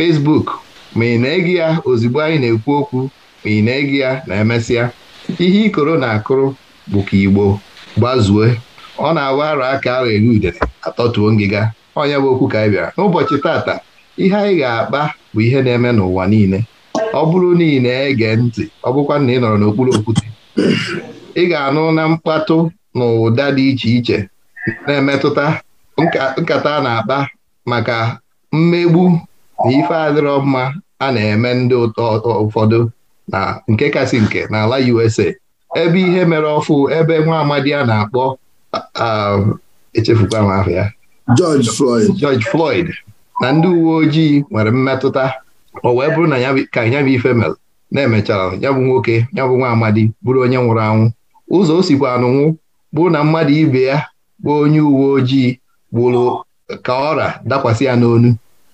fesbuk ma ị na-ege ya ozugbo anyị na-ekwu okwu ma ị na-ege ya na emesịa ihe ikoro na-akụrụ bụ ka Igbo gbazue ọ na-awa arọ aka ahụ eri udere atọtuo ngịga onye bụ okwu ka anyị bịara n'ụbọchị tata ihe anyị ga-akpa bụ ihe na-eme n'ụwa niile ọ bụrụ na ị na-ege ntị ọ bụkwa na ị nọrọ n'okpuru okwute ị ga-anụ na mkpatụ na ụda dị iche iche na-emetụta nkata a na-akpa maka mmegbu na ife adịrọ mma a na-eme ndị ụtọ ụfọdụ na nke kasị nke n'ala USA ebe ihe mere ọfụ ebe nwa amadi a na-akpọ echefukwa ahụ ya George Floyd na ndị uwe ojii nwere mmetụta o wee bụrụ na ka ya bụ ife mere na-emechara ya bụ nwoke ya bụ nwa amadi bụrụ onye nwụrụ anwụ ụzọ o sikwa anụnwụ bụrụ na mmadụ ibe ya bụ onye uwe ojii gburu ka ọra dakwasị ya n'onu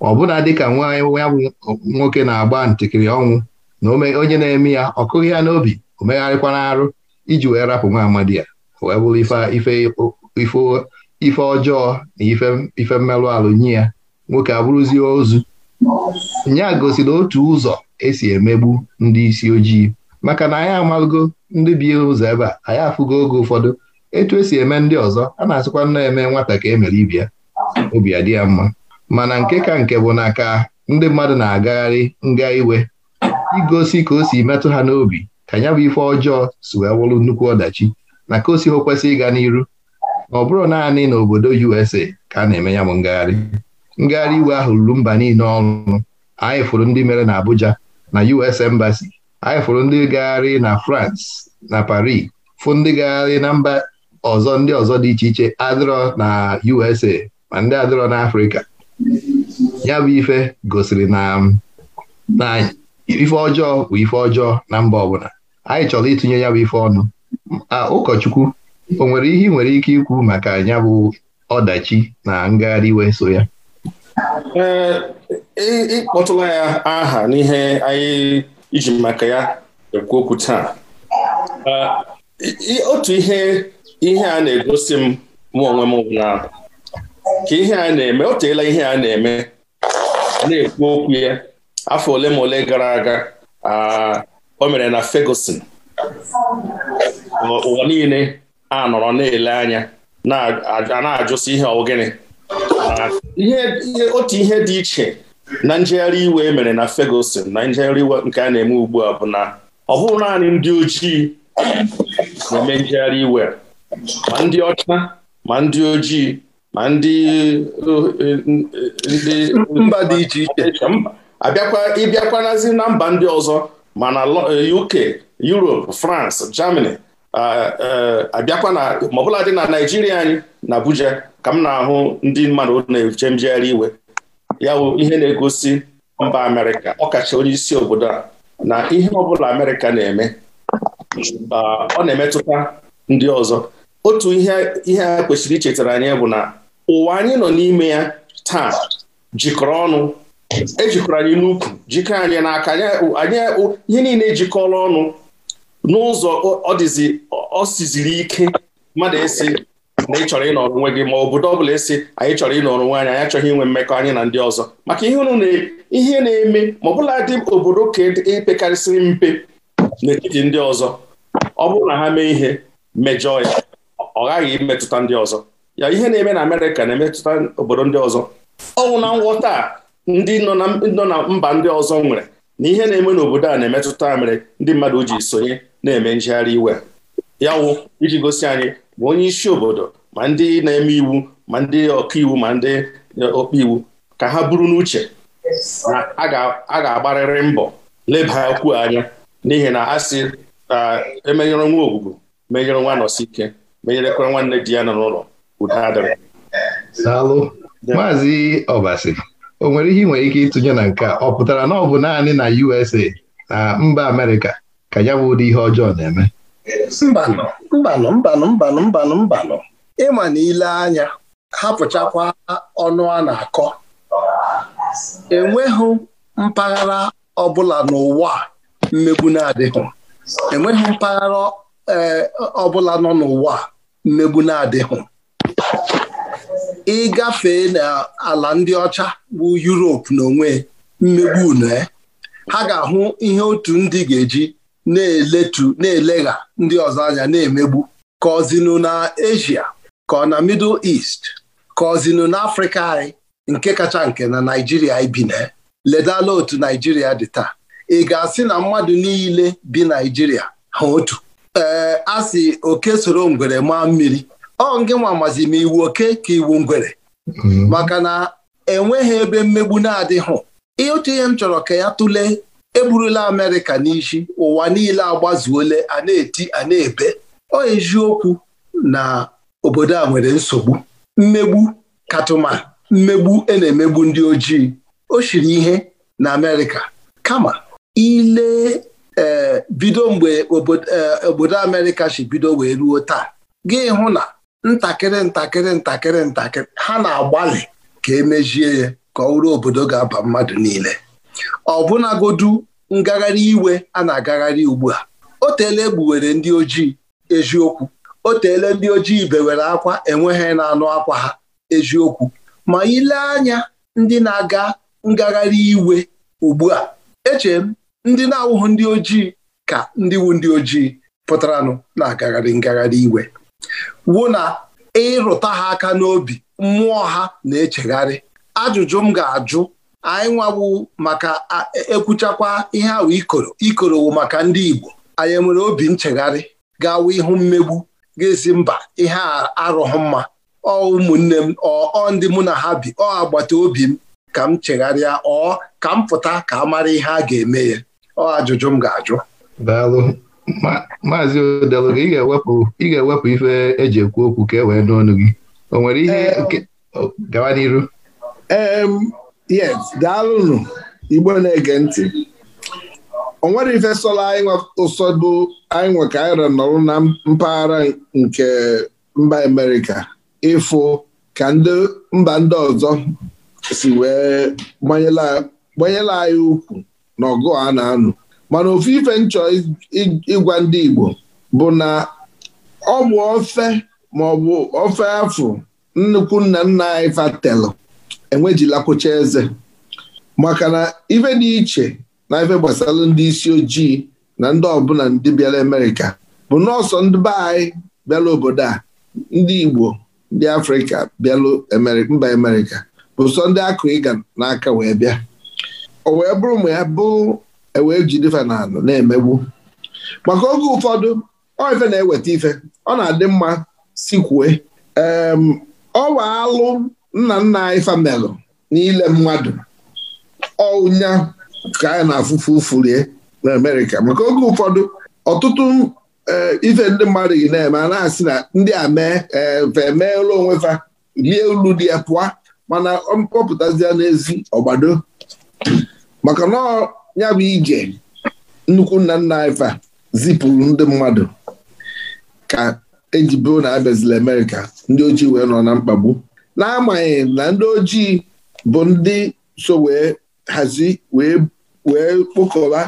ọbụna dịka nwa ya bụ nwoke na-agba ntikiri ọnwụ na onye na-eme ya ọ kụghị ya n'obi o megharịkwana arụ iji wee rapụ nwa amadi ya wee bụrụ ife ọjọọ na ife mmerụ alụ nye ya nwoke abụrụzie ozu nya gosiri otu ụzọ esi emegbu ndị isi ojii maka na anyị amalụgo ndị bi ụzọ ebe a anyị afụgo oge ụfọdụ etu esi eme ndị ọzọ a na-asịkwa nna eme nwata ka emere ibia obi adị ya mma mana nke ka nke bụ na ka ndị mmadụ na-agagharị nga iwe igosi ka o si metụ ha n'obi ka ya bụ ife ọjọọ si wee wụrụ nnukwu ọdachi na ka o si kwesị ịga n'iru ma ọ bụrụ naanị n'obodo USA ka a na-eme ya bụ ngagharị ngagharị iwe ahụ ruru mba niile ọnụ anyị fụrụ ndị mere na Abuja na US Embassy anyị fụrụ ndị gagharị na France na Paris fụ ndị gagharị na mba ọzọ ndị ọzọ dị iche iche adịrọ na USA ma ndị adịrọ na afrịka. ya bụ ife gosiri na na ife ọjọọ bụ ife ọjọọ na mba ọbụla anyị chọrọ itinye ya bụ ife ọnụ ụkọchukwu o nwere ihe nwere ike ikwu maka ya bụ ọdachi na ngagharị iwe so ya e, ịkpọtụla ya aha n'ihe anyị iji maka ya ekwu okwu taa e, otu ihe a na-egosi m mụ onwe m ka ihe a na-eme o teela ihe a na-eme na-ekwu okwu ya afọ ole ma ole gara aga o mere na Ferguson ụwa niile a nọrọ na-ele anya na ajụsi ihe ọgịnị otu ihe dị iche na njegharị iwe e mere na Ferguson na njegharị iwe nke a na-eme ugbu a bụ na ọ bụrụ naanị ndị ojii na-eme njegharị iwe ma ndị ọcha ma ndị ojii ma ndị uh, uh, ndị mba dị iche iche abịakwa ịbịakwanazi na mba ndị ọzọ ma na UK uh, Europe France Germany abịakwa na maọbụla dị na Naijiria anyị na Abuja ka m na-ahụ ndị mmadụ na-eche njegharị iwe ya ihe na-egosi mba Amerịka ọkacha onye isi obodo a na ihe ọbụla Amerịka na-eme ọ na-emetụta ndị ọzọ otu ihe ihe a kwesịrị ichetara anyị bụ na ụwa anyị nọ n'ime ya taa jikọrọ ọnụ ejikọrọ anyị n'ukwu jikọ anyị n'aka anyị ihe niile ejikọla ọnụ n'ụzọ ọ siziri ike mmadụ esi na ị chọrọ ịnọrọ onwe gị ma obodo ọbụla esi anyị chọrọ ịnọrọ onwe anyị anyị achọghị inwe mmekọ anyị na ndị ọzọ maka ihe na-eme ma ọbụla dị obodo ka epekarịsịrị e mpe n'etiti ndị ọzọ ọ bụrụ na ha mee ihe mejọọ ya ọ ghaghị imetụta ndị ọzọ ya ihe na-eme na Amerịka na-emetụta obodo ndị ọzọ ọnwụ na ngwọta ndị nọ na mba ndị ọzọ nwere na ihe na-eme n'obodo a na-emetụta mere ndị mmadụ ji sonye na-eme njegharị iwe ya wụ iji gosi anyị ma onye isi obodo ma ndị na-eme iwu ma ndị ọkaiwu ma ndị ọkpa iwu ka ha buru n'uche na a ga-agbarịrị mbọ leba okwu anya n'ihi na a sị emenyere nwa ogwugwu menyere nwa nọsi ike menyerekwara nwanne di ya nọ n'ụlọ Salu, maazị Obasi o nwere ihe nwere ike ịtụnye na nke a ọ pụtara na ọ bụ naanị na USA na mba Amerịka ka ya bụ ụdị ihe ọjọọ na-eme mbanụ mbanụ mbanụ mbanụ mbanụ ịma na ile anya hapụchakwa ọnụ a na-akọ enweghị mpaghara ọbụla n'ụwa mmegbu mpaghara eh, ọbụla nọ n'ụwa mmegbu na-adịghị Ị gafee n'ala ndị ọcha bụ Yuropu n'onwe mmegbu une eh? ha ga-ahụ ihe otu ndị ga-eji na-eletu na-elegha ndị ọzọ anya na-emegbu ka ọzinụ na Asia ka ọ na Middle East ka ọzinụ na Afrịka anyị nke kacha nke na Naijiria ibi na eh? ledala otu Naijiria dị taa ị ga-asị na mmadụ niile bi Naijiria ha otu ee eh, a sị oke soro ngwere maa mmiri ọ nke nwa amazi ma iwu oke ka iwu ngwere mm-hmm. maka na enweghị ebe mmegbu na-adịghị otu ihe m chọrọ ka ya tụlee eburula Amerịka n'isi ụwa niile agbazuole a na-eti a na-ebe ọ eziokwu na obodo a nwere nsogbu mmegbu katụma mmegbu ena na-emegbu ndị ojii o shiri ihe na Amerịka kama ile eh, bido mgbe obodo eh, Amerịka si bido wee ruo taa gị hụ na ntakịrị ntakịrị ntakịrị ntakịrị ha na-agbalị ka emejie ya ka ọ obodo ga-aba mmadụ niile ọbụnagodu ngagharị iwe a na-agagharị ugbu a o teela egbuwere ndị ojii eziokwu o ndị ojii bewere akwa enweghị na-anụ akwa ha eziokwu ma ile anya ndị na-aga ngagharị iwe ugbu a echere m ndị na-awụghị ndị ojii ka ndị wu ndị ojii pụtaranụ na-agagharị ngagharị iwe wụ na ịrụta ha aka n'obi mmụọ ha na-echegharị ajụjụ m ga-ajụ anyị nwawu maka e, ekwuchakwa ihe ahụ ikoro ikorowu maka ndị Igbo anyị enwere obi nchegharị gawa ihu mmegbu ga-esi mba ihe arụghị mma ọ ụmụnne m ọ ndị mụ na ha bi ọ agbata obi m ka m chegharịa ọ ka m pụta ka a mara ihe a ga-eme ya ọ ajụjụ m ga-ajụ maazị odelụga ị ga-ewepụ ị ga-ewepụ ife eji ekwu okwu ka e wee n'ọnụ gị o nwere ihe eh, nke gawa n'iru yes daalụnụ igbo na-ege ntị o nwere ife sọla anyị ụsọdụ anyị nwe ịra n'ọrụ na mpaghara nke mba Amerịka ịfụ ka ndị mba ndị ọzọ si wee gbanyela anyị ukwu na ọgụ a na-anụ mana ofu ife nchọ ịgwa ndị Igbo bụ na ọ bụ ofe maọbụ ofe afụ nnukwu nna nna anyị fatelu enwejilakwụcha eze maka na ife dị iche na ife gbasara ndị isi ojii na ndị ọbụla ndị bịara Amerịka bụ nọọsọ ndị be anyị bịara obodo a ndị Igbo ndị Afrịka bịalụ mba Amerịka bụ sọ ndị akụ ịga n'aka wee bịa o wee bụrụ ma ya bụ ewee jidefe na anụ na-emegbu maka oge ụfọdụ ọ ife na-eweta ife ọ na-adị mma si sikwue ọwa alụ nna nna anyị famelụ n'ile mmadụ ọnya ka anyị na-afụfu ụfurie na Amerịka maka oge ụfọdụ ọtụtụ e, ife ndị mmadụ gị na-eme a na-asị na ndị a mee emeela onwe fa lie ulu dị ya pụọ mana mkpọpụtazie n'ezi ọgbado maka na ya bụ ije nnukwu nna nna anyị zipụrụ ndị mmadụ ka eji na abịazila amerika ndị ojii wee nọ na mkpagbu n'amaghị na ndị ojii bụ ndị so wee hazi wee kpokọba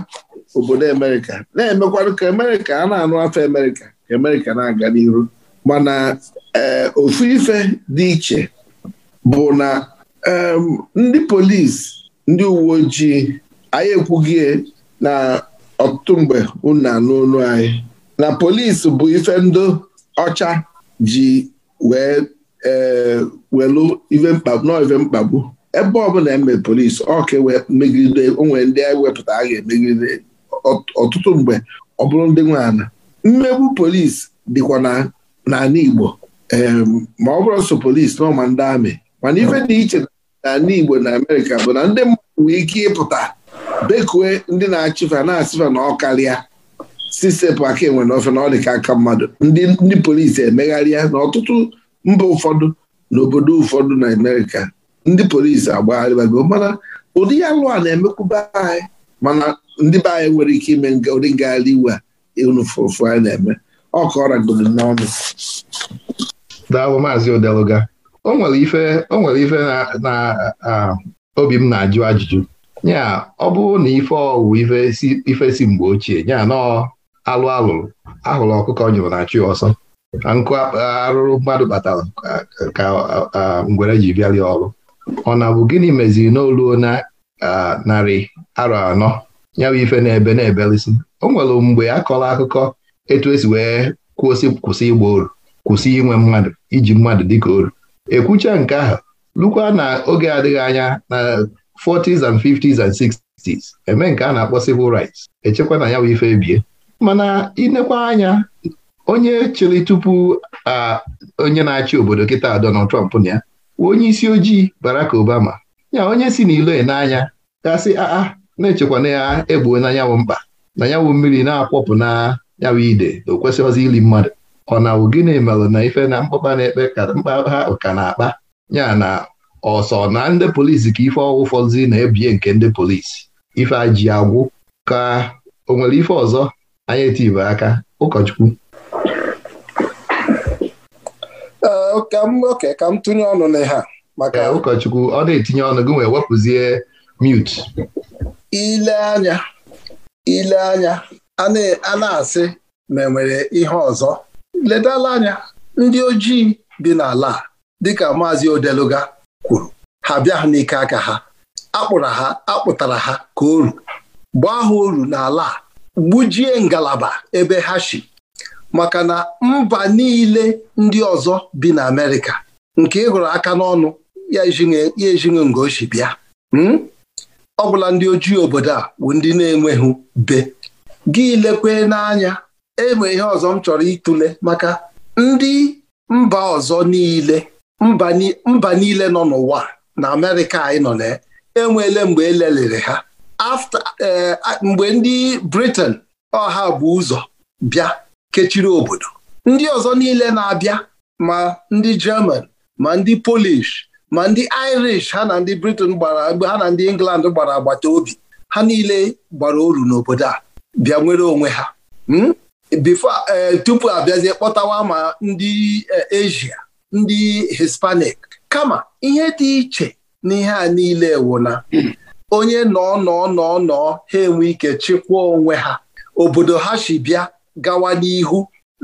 obodo amerika na-emekwanụ ka Amerịka a na-anụ afọ Amerịka ka Amerịka na-aga n'iru mana eh, ofu ife dị iche bụ na ndị polisi ndị uwe ojii anyị ekwughi na ọtụtụ mgbe unu anụ olu anyị na polisi bụ ife ndị ọcha ji wee e, welu ife mkpagbu nọ ife mkpagbu ebe ọbụla eme polisi ọka e megide onwere ndị anyị wepụta a ga-emegide ọtụtụ mgbe ọ bụrụ ndị nwe mmegbu polisi dịkwa n'ala Igbo ma ọ bụrụ sọ polisi n'ọma ndị amị mana ife dị iche na Igbo na Amerịka bụ na ndị mmadụ nwee ike ịpụta bekue ndị na-achịfa na-asịfa na ọkarịa sisepụ aka enwe na ofe na ọ dị ka aka mmadụ ndị polisi emegharịa na ọtụtụ mba ụfọdụ na obodo ụfọdụ na Amerịka ndị polisi agbagharịbago mana ụdị ya lụa na-emekwube anyị mana ndị be anyị nwere ike ime ụdị ngagharị iwe unufụfụ anyị na-eme ọ ka ọ n'ọnụ daalụ maazị odeluga o nwere ife o nwere ife na obi m na-ajụ ajụjụ nya ọ bụrụ na ife ọwụ ife si mgbe ochie nya nọ alụ alụrụ ahụrụ ọkụkọ nyụrụ na chi ọsọ na nkụ arụrụ mmadụ kpatara ka ngwere ji bịarịa ọrụ ọ na bụ gịnị meziri n'olu na narị arọ anọ ya bụ ife na-ebe na-ebelisi o nwere mgbe a kọrọ akụkọ etu esi wee kwụsị kwụsị ịgba oru kwụsị inwe mmadụ iji mmadụ dịka oru ekwucha nke ahụ lukwa na oge adịghị anya na 40s and 50s and 60s eme nke a na-akpọ civil rights echekwa na ya bụ ife ebie mana inekwa anya onye chịrị tupu onye na-achị obodo kịta Donald Trump na ya onye isi ojii Barack Obama ya onye si n'ilo e n'anya gasị aa ah, ah, na-echekwa na ya egbuo na nyanwụ mkpa na nyanwụ mmiri na-akwọpụ na nyanwụ ide o kwesịghịzi ili mmadụ ọ na gịnị melụ na ife na mkpọba na-ekpe ka mkpa ha ka na-akpa ya na ọsọ na ndị polisi ka ife ọgwụ fọzi na-ebie nke ndị polisi ife ji agwụ ka o nwere ife ọzọ anyị etibe aka ụkọchukwu oke ka m tụnye ọnụ na ha maka ụkọchukwu ọ na-etinye ọnụ gị wee wepụzie mute ile anya ile anya a na-asị ma enwere ihe ọzọ ledala anya ndị ojii dị n'ala dịka maazị odeluga kwuru ha bịa ha n'ike aka ha akpụra ha akpụtara ha ka oru gbaa ha oru n'ala a gbujie ngalaba ebe ha si maka na mba niile ndị ọzọ bi na Amerịka nke ịhụrụ aka n'ọnụ ya ejighị ngochi bịa hmm? ọ bụla ndị ojii obodo a bụ ndị na-enweghị be gị lekwe n'anya enwe ihe ọzọ m chọrọ ịtụle maka ndị mba ọzọ niile mba niile nọ n'ụwa na amerịka anyị nọ na enweela mgbe elelere ha afta eh, mgbe ndị briten ọha bụ ụzọ bịa kechiri obodo ndị ọzọ niile na-abịa ma ndị german ma ndị polish ma ndị irish ha na ndị britain gbara mgbe ha na ndị england gbara agbata obi ha niile gbara oru n'obodo a bịa nwere onwe ha hmm? bifo eh, tupu abịazie kpọtawa ma ndị eh, asia ndị Hispanic kama ihe dị iche n'ihe a niile ewuna onye nọ nọ nọ nọ ha enwe ike chịkwaa onwe ha obodo ha si bịa gawa n'ihu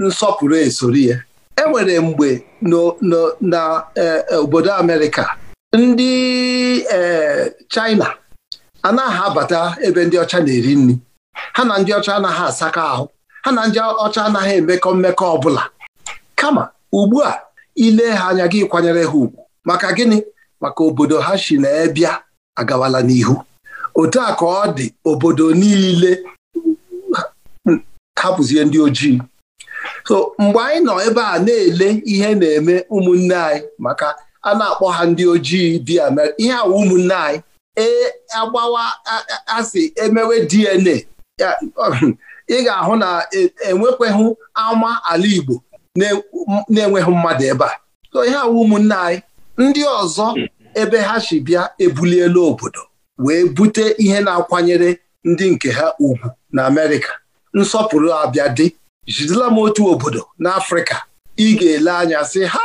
nsọpụrụ esoro ya enwere mgbe na e, e, obodo Amerịka ndị e, China anaghị abata ebe ndị ọcha na-eri nri ha na ndị ọcha anaghị asaka ahụ ha na ndị ọcha anaghị emekọ mmekọ ọbụla kama ugbu a ile ha anya gị kwanyere ha ugwu maka gịnị maka obodo ha si na ebịa agawala n'ihu otu a ka ọ dị obodo niile hapụzie ndị ojii so mgbe anyị nọ ebe a na-ele ihe na-eme ụmụnne anyị maka a na-akpọ ha ndị ojii di mere ihe awa ụmụnne anyị ee agbawa asị emewe DNA ị ga-ahụ na e, enwekweghị ama ala Igbo na-enweghị mmadụ ebe a so ihe awa ụmụnne anyị ndị ọzọ ebe ha si bịa ebuliela obodo wee bute ihe na-akwanyere ndị nke ha ugwu na Amerịka nsọpụrụ abịa dị jidela m otu obodo n'Afrịka ị ga-ele anya sị ha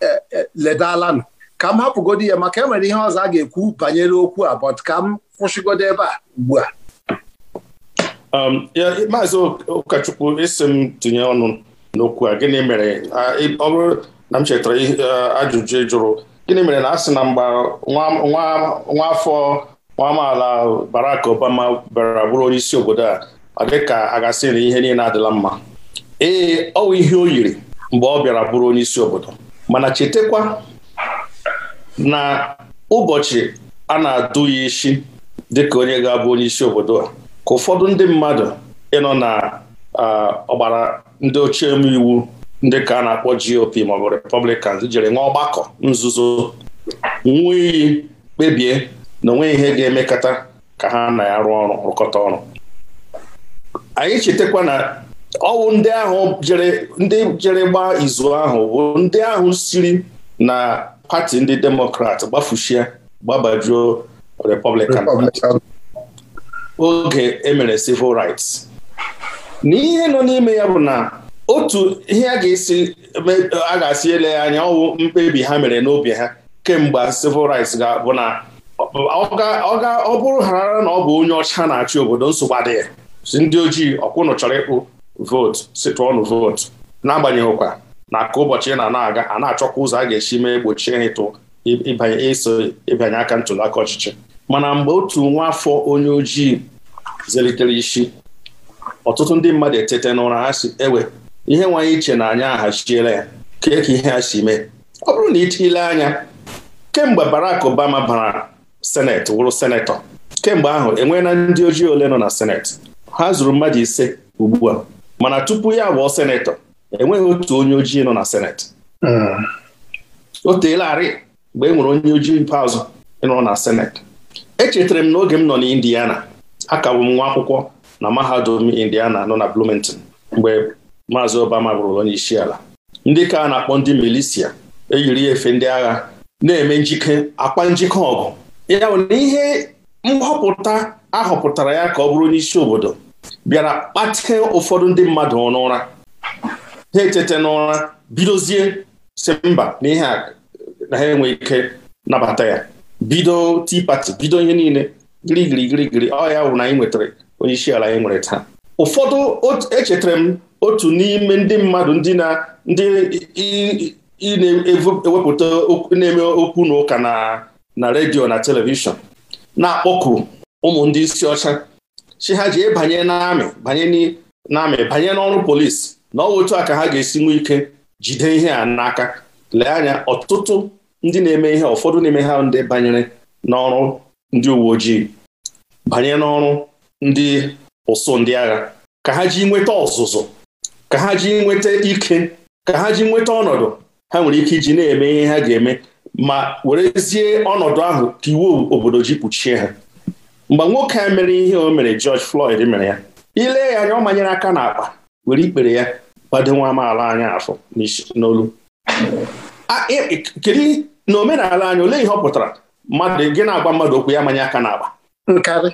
e, e, ledalanụ ka m hapụgodu ya maka enwere ihe ọzọ a ga-ekwu banyere okwu a but ka m kwụsịgodo ebe a ugbu a um, maazị Ụkọchukwu isi tinye ọnụ n'okwu a gịnị mere ọ bụrụ na m chetara ajụjụ ịjụrụ jụrụ gịnị mere na a sị na nwa afọ nwa amaala barak Obama bịara bụrụ onye isi obodo a dị ka a gasị na ihe niile adịla mma ee ọ bụ ihe o yiri mgbe ọ bịara bụrụ onye isi obodo mana chetekwa na ụbọchị a na-adụ ya isi dịka onye ga-abụ onye isi obodo a ka ụfọdụ ndị mmadụ ịnọ na ọgbara ndị ochie eme iwu ndị ka a na-akpọ GOP maọbụ Republicans jere nwa ọgbakọ nzuzo nwa kpebie na onwe ihe ga-emekọta ka ha na arụ ọrụ rụkọta ọrụ anyị chetakwa na ọwụ ndị ahụ jere ndị jere gbaa izu ahụ bụ ndị ahụ siri na pati ndị demokrat gbafuchie gbabajuo republican oge emere civil rights na ihe nọ n'ime ya bụ na otu ihe a ga-esi a ga-asị ele ya anya ọwụ mkpebi ha mere n'obi ha kemgbe civil rights ga-abụ na ọ bụrụ ghara na ọ bụ onye ọcha na-achị obodo nsogbu adịghị si ndị ojii ọkwụnụ chọrọ ịkpụ vootu si votu vootu n'agbanyeghịkwa na ka ụbọchị na na-aga a na-achọkwa ụzọ a ga-esi mee gbochie ịtụ ịbanye ịbanye aka ntụliaka ọchịchị mana mgbe otu nwa afọ onye ojii zelitere isi ọtụtụ ndị mmadụ etete n'ụra ha si ewe ihe nwanyị iche na anyị ahachiela ya kee ka ihe ha si mee ọ bụrụ na ile anya kemgbe barak Obama bara seneti wụrụ senetọ kemgbe ahụ enweela ndị ojii ole nọ na senet ha zuru mmadụ ise ugbu a mana tupu ya abụọ senetọ enweghị otu onye ojii nọ na senet o teelarị mgbe e nwere onye ojii mpeazụ nọ na senet echetara m n'oge m nọ na Indiana akagbụ m nwa akwụkwọ na mahadum Indiana nọ na Bloomington mgbe maazị Obama bụrụ onye isi ala ndị ka na-akpọ ndị milisia eyiri efe ndị agha na-eme njike akpa njike ọgụ ya bụ na ihe nhọpụta ahọpụtara ya ka ọ bụrụ onye isi obodo bịara kpatee ụfọdụ ndị mmadụ n'ụra ha etete n'ụra bidozie si mba na ihe na ha enwe ike nabata ya bido tea party bido ihe niile gịrịgịrịgịrịgịrị ọ ya bụ na anyị nwetara onye isi ala anyị nwere taa ụfọdụ echetara m otu n'ime ndị mmadụ ndị na ndị na-ewepụta na-eme okwu na ụka na na redio na telivishọn na-akpọku ụmụ ndị isi ọcha chi ha ji ịbanye n'amị banye n'amị banye n'ọrụ polisi na ọ otu a ka ha ga-esi nwee ike jide ihe a n'aka lee anya ọtụtụ ndị na-eme ihe ụfọdụ n'ime ha ndị banyere n'ọrụ ndị uwe ojii banye n'ọrụ ndị ụsụ ndị agha ka ha ji nweta ọzụzụ ka ha ji nweta ike ka ha ji nweta ọnọdụ ha nwere ike iji na-eme ihe ha ga-eme ma werezie ọnọdụ ahụ ka iwu obodo ji kpuchie ha mgbe nwoke a mere ihe o mere George Floyd mere ya ile ya anya ọ manyere aka n'akpa were ikpere ya gbado nwa amaala anyị afọ n'olu e, e, kedu n'omenala omenala anyị olee ihe ọ pụtara mmadụ gị na-agwa mmadụ okwu ya manye aka n'akpa nkarị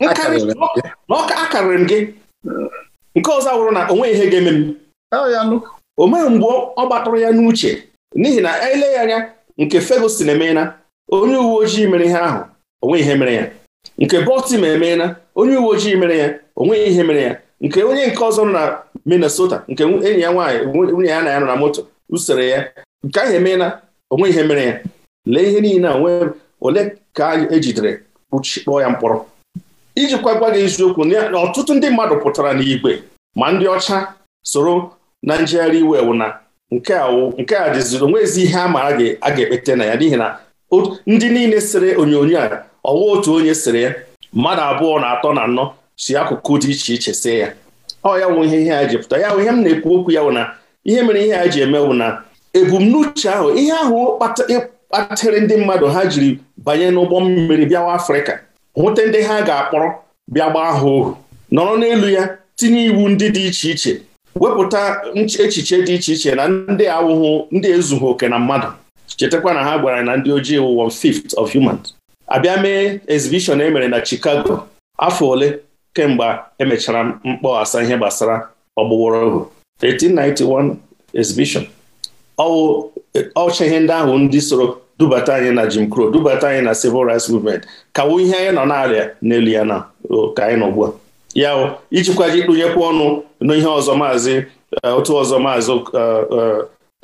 na ọ akarịrị m gị nke ọzọ wụrụ na nweghị ihe ga-eme m oh, o meghị mgbe ọ gbatụrụ ya n'uche n'ihi na ele ya anya nke Ferguson emeela onye uwe ojii mere ihe ahụ onwe ihe mere ya nke Baltimore emeela onye uwe ojii mere ya onwe ihe mere ya nke onye nke ọzọ nọ na Minnesota nke enyi ya nwaanyị nwunye ya na ya nọ na moto usoro ya nke ahụ emeela onwe ihe mere ya lee ihe niile a nwee ole ka ejidere kpụọ ya mkpọrọ iji kwagwa gị eziokwu na ọtụtụ ndị mmadụ pụtara n'igwe ma ndị ọcha soro na njegharị iwe ewu na nke a nke a dịziri onwezi ihe a maara gị a ga-ekpete na ya n'ihi na ndị niile sere onyonyo a ọwa otu onye sere ya mmadụ abụọ na atọ na anọ si akụkụ dị iche iche see ya ọ ya wụ ihe ihe a ji pụta ya wụ ihe m na-ekwu okwu ya wụ na ihe mere ihe a ji eme na ebumnuche ahụ ihe ahụ kpatịrị ndị mmadụ ha jiri banye n'ụgbọ mmiri bịawa afrịka hụte ndị ha ga-akpọrọ bịa gbaa ha ohu nọrọ n'elu ya tinye iwu ndị dị iche iche wepụta echiche dị iche iche na ndị awụghụ ndị ezughị oke na mmadụ chetakwa na ha gwara na ndị ojii wụ one fifth of humans abịa mee exhibition emere na Chicago afọ ole kemgbe emechara mkpọghasa ihe gbasara ọgbụgbọrọ ohu 1891 exhibition ọwụ ọcha ihe ndị ahụ ndị soro dubata anyị na Jim Crow dubata anyị na civil rights movement kawo ihe anyị nọ na n'elu ya na ka anyị nọgbu ugbu a ya ijikwaji ikpụnyekwa ọnụ n'ihe ọzọ maazị e, otu ọzọ maazị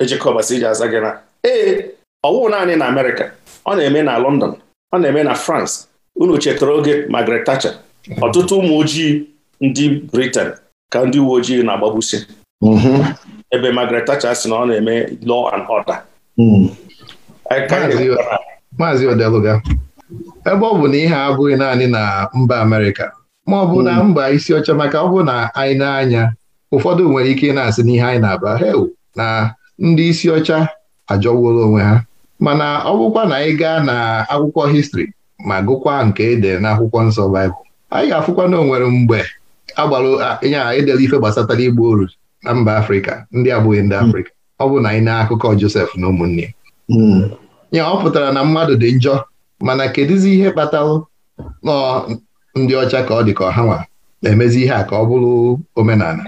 ejikọbasi e, iji aza gị na ee ọwụ naanị na Amerịka ọ na-eme na London ọ na-eme na France unu chetara oge Margaret Thatcher ọtụtụ ụmụ ojii ndị britan ka ndị uwe ojii na-agbagbusi mhm. ebe Margaret Thatcher sị na ọ na-eme law and order mm. maazị odeluga ebe ọ bụ na ihe abụghị naanị na mba Amerịka ma ọ bụ na hmm. mba isi ọcha maka ọ bụ na anyị na-anya ụfọdụ nwere ike na-asị n'ihe anyị na-aba hew na ndị isi ọcha ajọwuola onwe ha mana ọ bụkwa na anyị gaa na akwụkwọ histri ma gụkwa nke ede na akwụkwọ nsọ baịbụl anyị ga-afụkwa na onwere nwere mgbe agbalụ ịnya edela ife gbasatara igbu oru na mba afrịka ndị abụghị ndị hmm. afrịka ọ bụ na anyị na akụkọ josef na ụmụnne ya hmm. ọ pụtara na mmadụ dị njọ mana kedụzi ihe kpatalụ nọ ndị ọcha ka ọ dị ka ọha nwa na-emezi ihe a ka ọ bụrụ omenala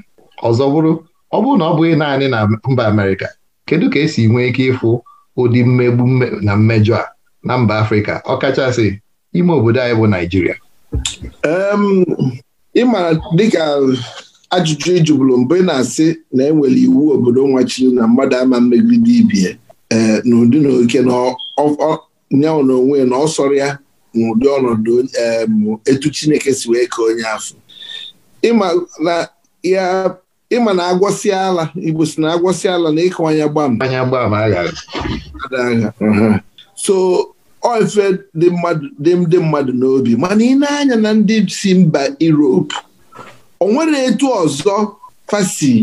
ọzọ bụrụ ọ bụrụ na ọ bụghị naanị na mba Amerịka kedu ka esi nwee ike ịfụ ụdị mmegbu na mmejọ a na mba Afrịka ọ kachasị ime obodo anyị bụ Naịjirịa ịmara dịka ajụjụ ijubulu mbụ ị na-asị na enwere iwu obodo nwachiri na mmadụ ama mmegide ibie n'ụdị eh, na oke na nyanwụ na onwe na ọ sọrọ ya n'ụdị ọnọdụ eh, etu Chineke si wee ka onye afọ ịma na agwọsị ala Igbo si na agwọsị ala na ịkawanye gbam so ọ ife dị ndị mmadụ n'obi mana ị na-anya na ndị si mba erope o nwere etu ọzọ fasi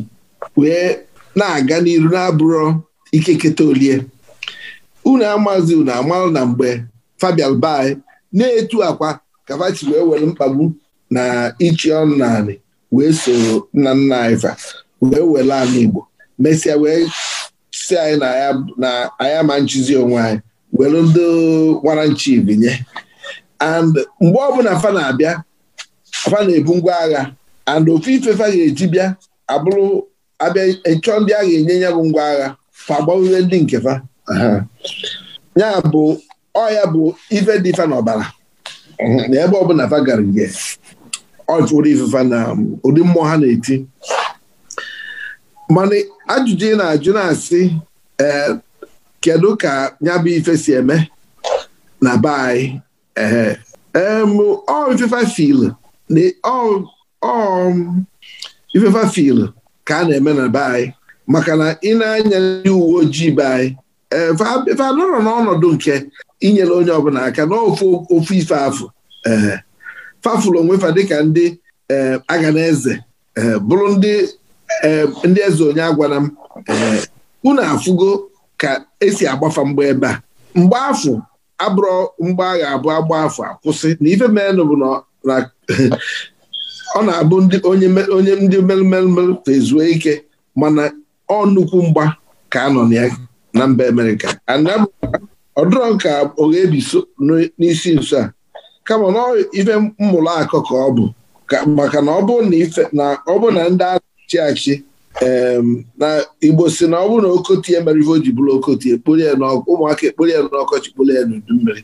wee na-aga n'iru na-abụrụ ikeketa olie unu amazi unu amalụ na mgbe fabian bai na-etu akwa kavachi wee were mkpagbu na ichi ọnụ naanị wee soro nna nna anyị wee were anụ Igbo mesịa wee si anyị na anya ma nchizi onwe anyị were ndị nwara nchi binye and mgbe ọbụla fa na-abịa fa na-ebu ngwa agha and ofu ife fa ga-eji bịa abụrụ abịa ịchọ ndị agha ga-enye ya bụ ngwa agha fa ndị nke fa ya bụ ọya bụ ife dị fa n'ọbara na ebe ọbụla fa gara nje ọ jụrụ ifefa na um, ụdị mmụọ ha na-eti mana ajụjụ ị na-ajụ na-asị ee eh, kedu ka ya bụ ife si eme na be anyị ee ọ ifefa fil ọ um, ifefa fil ka a na-eme na be anyị maka na ị na-anya ndị uwe ojii be anyị efe eh, anọrọ n'ọnọdụ nke inyere onye ọbụla aka n'ofe ofu ife afụ ee eh, fafụlụ onwefa dịka ndị eh, aga na eze bụrụ ndị eze onye agwara m unu afụgo ka esi agbafa mgbe ebe a mgbe afụ abụrụ mgbe agha abụọ agba afọ akwụsị na ife menụ bụ na ọ na-abụ onye ndị merụmerụmerụ ezuo ike mana ọ nnukwu mgba ka anọ na ya na mba Amerịka ọdụrọ ka Oghebi so n'isi nso a kama na ife mmụrụ akụ ka ọ bụ maka na ọ bụ na ndị achị achị na Igbo si na ọ bụ na okotie mere ife ji bụrụ okotie ekporie ụmụaka ekporie n'ọkọchị kporie n'udu mmiri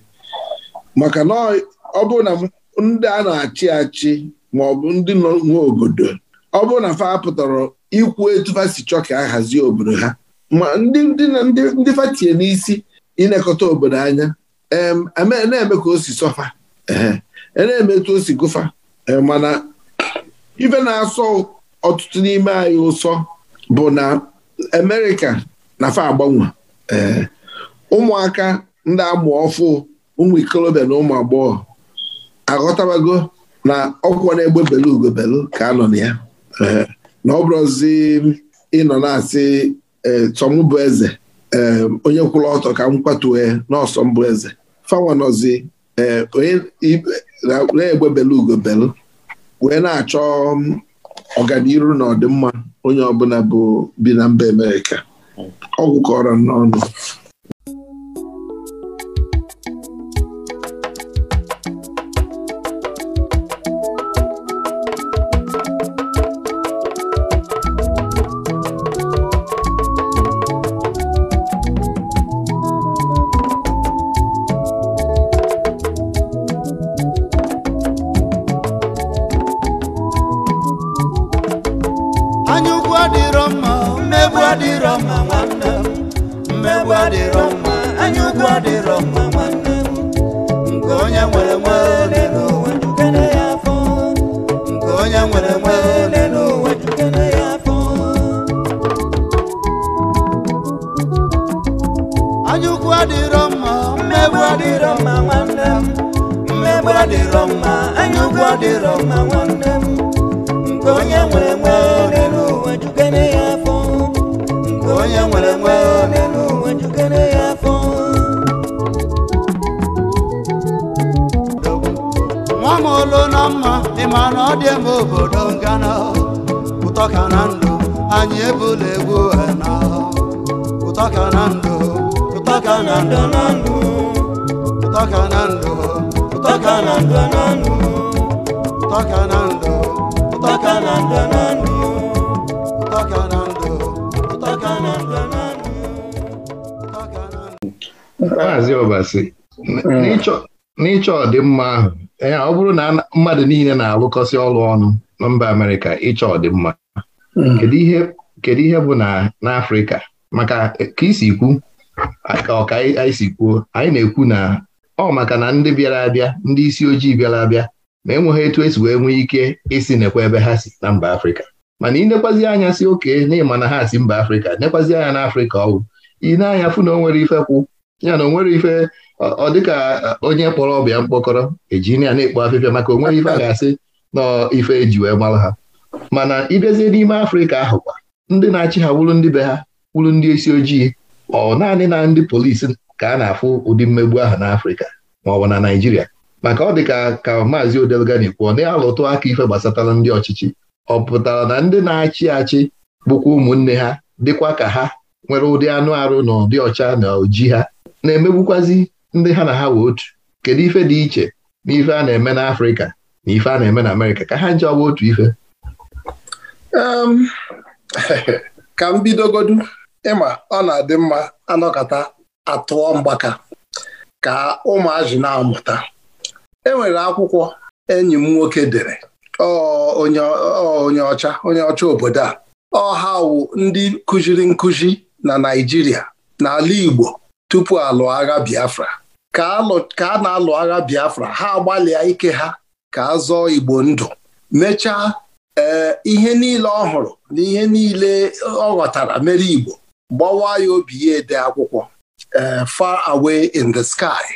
maka na ọ bụ na ndị a na-achị achị ma ọ bụ ndị nwe obodo ọ bụ na fa pụtara ikwu etu fa chọọ ka a hazie obodo ha ma ndị na ndị fatie n'isi ịnekọta obodo anya na-eme ka o si sọfa e na-eme etu o si gụfa e, mana ife na-asọ ọtụtụ n'ime anyị ụsọ bụ na Amerịka na fa agbanwe e, ụmụaka ndị amụ ọfụ ụmụ ikolobịa na ụmụ agbọghọ aghọtabago na ọkwụkwọ na-egbe belu ugobelu ka a nọ na ya na ọ bụrụzi ịnọ na-asị e, tọm bụ eze e, onye kwụrụ ọtọ ka m kwatue n'ọsọ mbụ eze fawanọzi e, na-egbebela ugobelu wee na-achọ ọganiru na ọdịmma onye ọbụla bụ bi na mba Amerịka ọgwụ kọrọ n'ọnụ mana ọ dị m obodo ngana ụtọ ka na ndụ anyị ebula egwu na ụtọ ka na ndụ ụtọ ka na ndụ na ndụ ụtọ ka na ndụ ụtọ ka na ndụ na ndụ ụtọ ka na ndụ ụtọ ka na ndụ na ndụ ụtọ ka na ndụ ụtọ ka na ndụ na ndụ ụtọ ka na ndụ Maazị Obasi n'ịchọ ọdịmma ahụ ee ọ bụrụ na mmadụ niile na-alụkọsị ọrụ ọnụ na mba Amerịka ịchọ ọdịmma hmm. kedu ihe bụ na n'Afrịka maka ka isi kwu ọka anyị si kwuo anyị na-ekwu na ọ maka na ndị bịara abịa ndị isi ojii bịara abịa ma enweghị etu esi wee nwee ike isi nekwa ebe ha si na mba Afrịka mana ị nekwazi anya si oke na ịma na ha si mba Afrịka nekwazi anya n'Afrịka ọwụ ị na-anya fụ na o nwere ife kwụ ya na onwere ife ọ dịka e, onye kpọrọ ọbịa mkpọkọrọ ejinia na-ekpo afịfịa maka onwere ife a ga-asị na ife eji wee mara ha mana ịbịazie n'ime afrịka ahụ kwa ndị na-achị ha wụrụ ndị be ha wụrụ ndị isi ojii ọ naanị na ndị polisi ka a na-afụ ụdị mmegbu ahụ n'afrịka ma ọ bụ na naijiria maka ọ dịka ka maazị odelgani kwuo na-alụtụ aka ife gbasatara ndị ọchịchị ọ pụtara na ndị na-achị achị bụkwa ụmụnne ha dịkwa ka ha nwere ụdị anụ arụ na ụdị ọcha na oji ha na-emegbukwazi ndị ha na ha wee otu kedu ife dị iche n'ife a na-eme n'Afrịka na ife a na-eme na Amerịka ka ha nje ọgba otu ife ka m bidogodu ịma ọ na-adị mma anọkọta atụọ mgbaka ka ụmụazị na-amụta e nwere akwụkwọ enyi m nwoke dere onye ọcha onye ọcha obodo a ọha wu ndị kụziri nkụzi na Naịjirịa n'ala Igbo tupu alụ agha Biafra ka a na-alụ agha Biafra ha agbalịa ike ha ka a zọọ Igbo ndụ mechaa eh, ihe niile ọ hụrụ na ihe niile ọ ghọtara mere Igbo gbawa ya obi ya ede akwụkwọ eh, Far Away in the Sky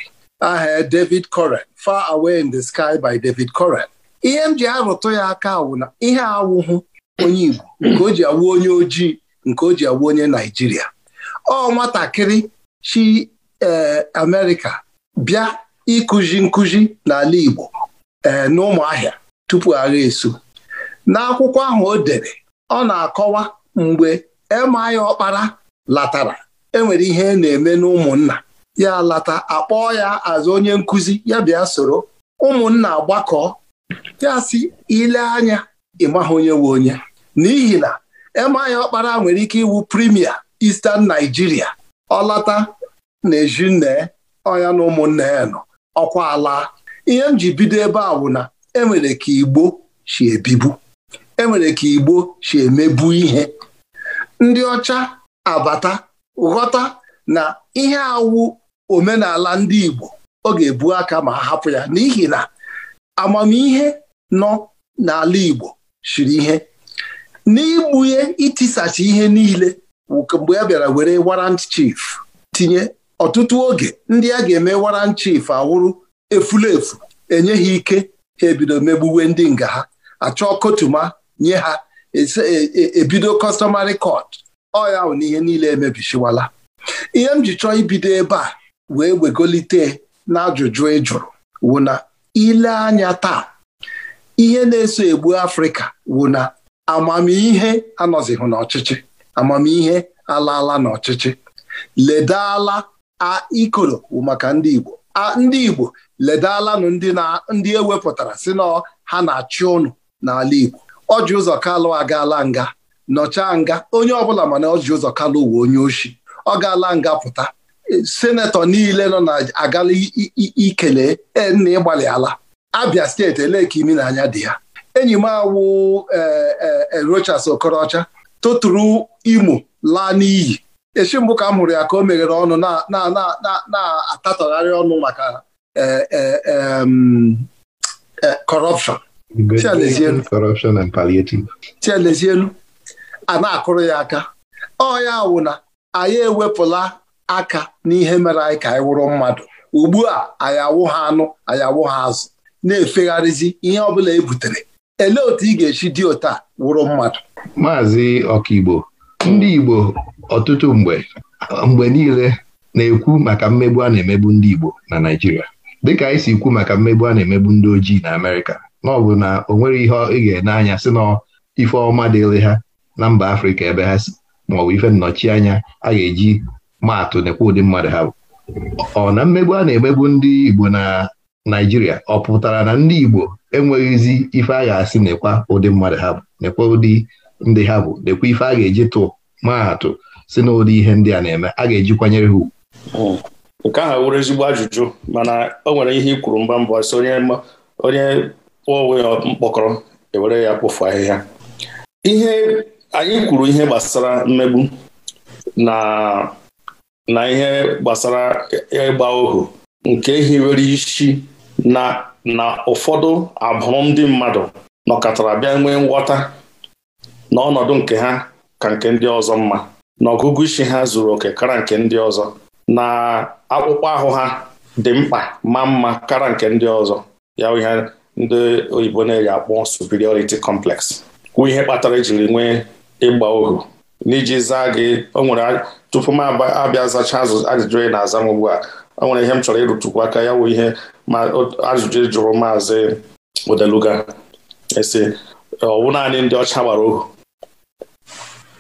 aha David Corren Far Away in the Sky by David Corren ihe m ji arụtụ ya aka awụ na ihe awụhụ onye Igbo nke o ji awụ onye ojii nke o ji awụ onye Naijiria ọ nwatakịrị chi eh, Amerịka bịa ịkụzi nkụzi n'ala Igbo eh, n'ụmụahịa tupu agha esu n'akwụkwọ ahụ o dere ọ na-akọwa mgbe emaya ọkpara latara enwere ihe e na-eme n'ụmụnna ya lata akpọọ ya azụ onye nkụzi ya bịa soro ụmụnna agbakọ ya si ile anya ịmaha onye nwe onye n'ihi na emaya ọkpara nwere ike iwu primia Eastern Nigeria ọlata. na-eji nne ọya na ụmụnne ya nọ ọkwa ala ihe m ji bido ebe a bụ na enwere ka Igbo si ebibu enwere ka Igbo si emebu ihe ndị ọcha abata ghọta na ihe awụ omenala ndị Igbo ọ ga-ebu aka ma hapụ ya n'ihi na amamihe nọ n'ala Igbo shiri ihe n'igbunye itisacha ihe niile mgbe a bịara were warrant chief tinye ọtụtụ oge ndị a ga-eme waran chief awụrụ efulefu enye ha ike ha ebido megbuwe ndị nga ha achọ kotuma nye ha e, e, e, ebido customary court ọya na n'ihe niile emebichiwala ihe m ji chọọ ibido ebe a wee wegolite n'ajụjụ ị jụrụ wụ na ile anya taa ihe na-eso egbu afrịka wụ na amamihe anọzihụ n'ọchịchị amamihe alaala n'ọchịchị ledala ikoro bụ maka ndị Igbo a ndị Igbo ledalanụ ndị ewepụtara si na ha na-achị ụnụ n'ala Igbo ọjị ụzọ kalụ agaala nga nọchaa nga onye ọbụla mana ọjị ụzọ kalụ uwe onye ochi ọ gaala nga pụta e, senetọ niile nọ na agala ikele e, nna ịgbalị ala Abia steeti ele ka imi na anya dị ya enyi m awụ erochas e, Okorocha tụtụrụ Imo laa n'iyi echi mbụ ka m hụrụ ya ka o meghere ọnụ na-atatọgharị ọnụ maka e, e, e, corruption chielezielu a na-akụrụ ya aka ọ ya wụ na anyị ewepụla aka n'ihe mere anyị ka anyị wụrụ mmadụ ugbu a anyị awụ ha anụ anyị awụ ha azụ na-efegharịzi ihe ọbụla e butere elee otu ị ga-esi dị otu wụrụ mmadụ maazị ọkaigbo ndị Igbo ọtụtụ mgbe mgbe niile na-ekwu maka mmegbu a na-emegbu ndị Igbo na Naijiria. dịka anyị si kwu maka mmegbu a na-emegbu ndị ojii na Amerịka na ọ na o nwere ihe ị ga-ene anya sị na ife ọma dịịrị ha na mba Afrịka ebe ha si maọbụ ife nnọchianya a ga-eji maatụ nekwa ụdị mmadụ ha bụ ọ na mmegbu a na-emegbu ndị Igbo na Naijiria, ọ pụtara na ndị Igbo enweghịzi ife a ga-asị nekwa ụdị mmadụ ha bụ nekwa ụdị ndị ha bụ lekwa ife a ga-eji tụ maatụ si n'ụdị ihe ndị a na-eme a ga-eji kwanyere ha ugwu hmm. nke ahụ wụrụ ezigbo ajụjụ mana o nwere ihe ikwuru mba mbọ si onye kpụọ onwe ya mkpọkọrọ ewere ya kpofu ahịhịa ihe anyị kwuru ihe gbasara mmegbu na na ihe gbasara ịgba ohu nke hiwere isi na na ụfọdụ abụrụ ndị mmadụ nọkọtara bịa nwee nghọta na ọnọdụ nke ha ka nke ndị ọzọ mma na ọgụgụ isi ha zuru oke kara nke ndị ọzọ na akpụkpọ ahụ ha dị mkpa ma mma kara nke ndị ọzọ ya ihe ndị oyibo na-eji akpọ superiority complex kwụ ihe kpatara ejiri nwee ịgba ohu n'iji zaa gị o nwere tupu m abịa zachaa ajụjụ na-aza m ugbu a o nwere ihe m chọrọ ịrụtụkwu aka ya wụ ihe ajụjụ jụrụ maazị odeluga esi ọ naanị ndị ọcha gbara ohu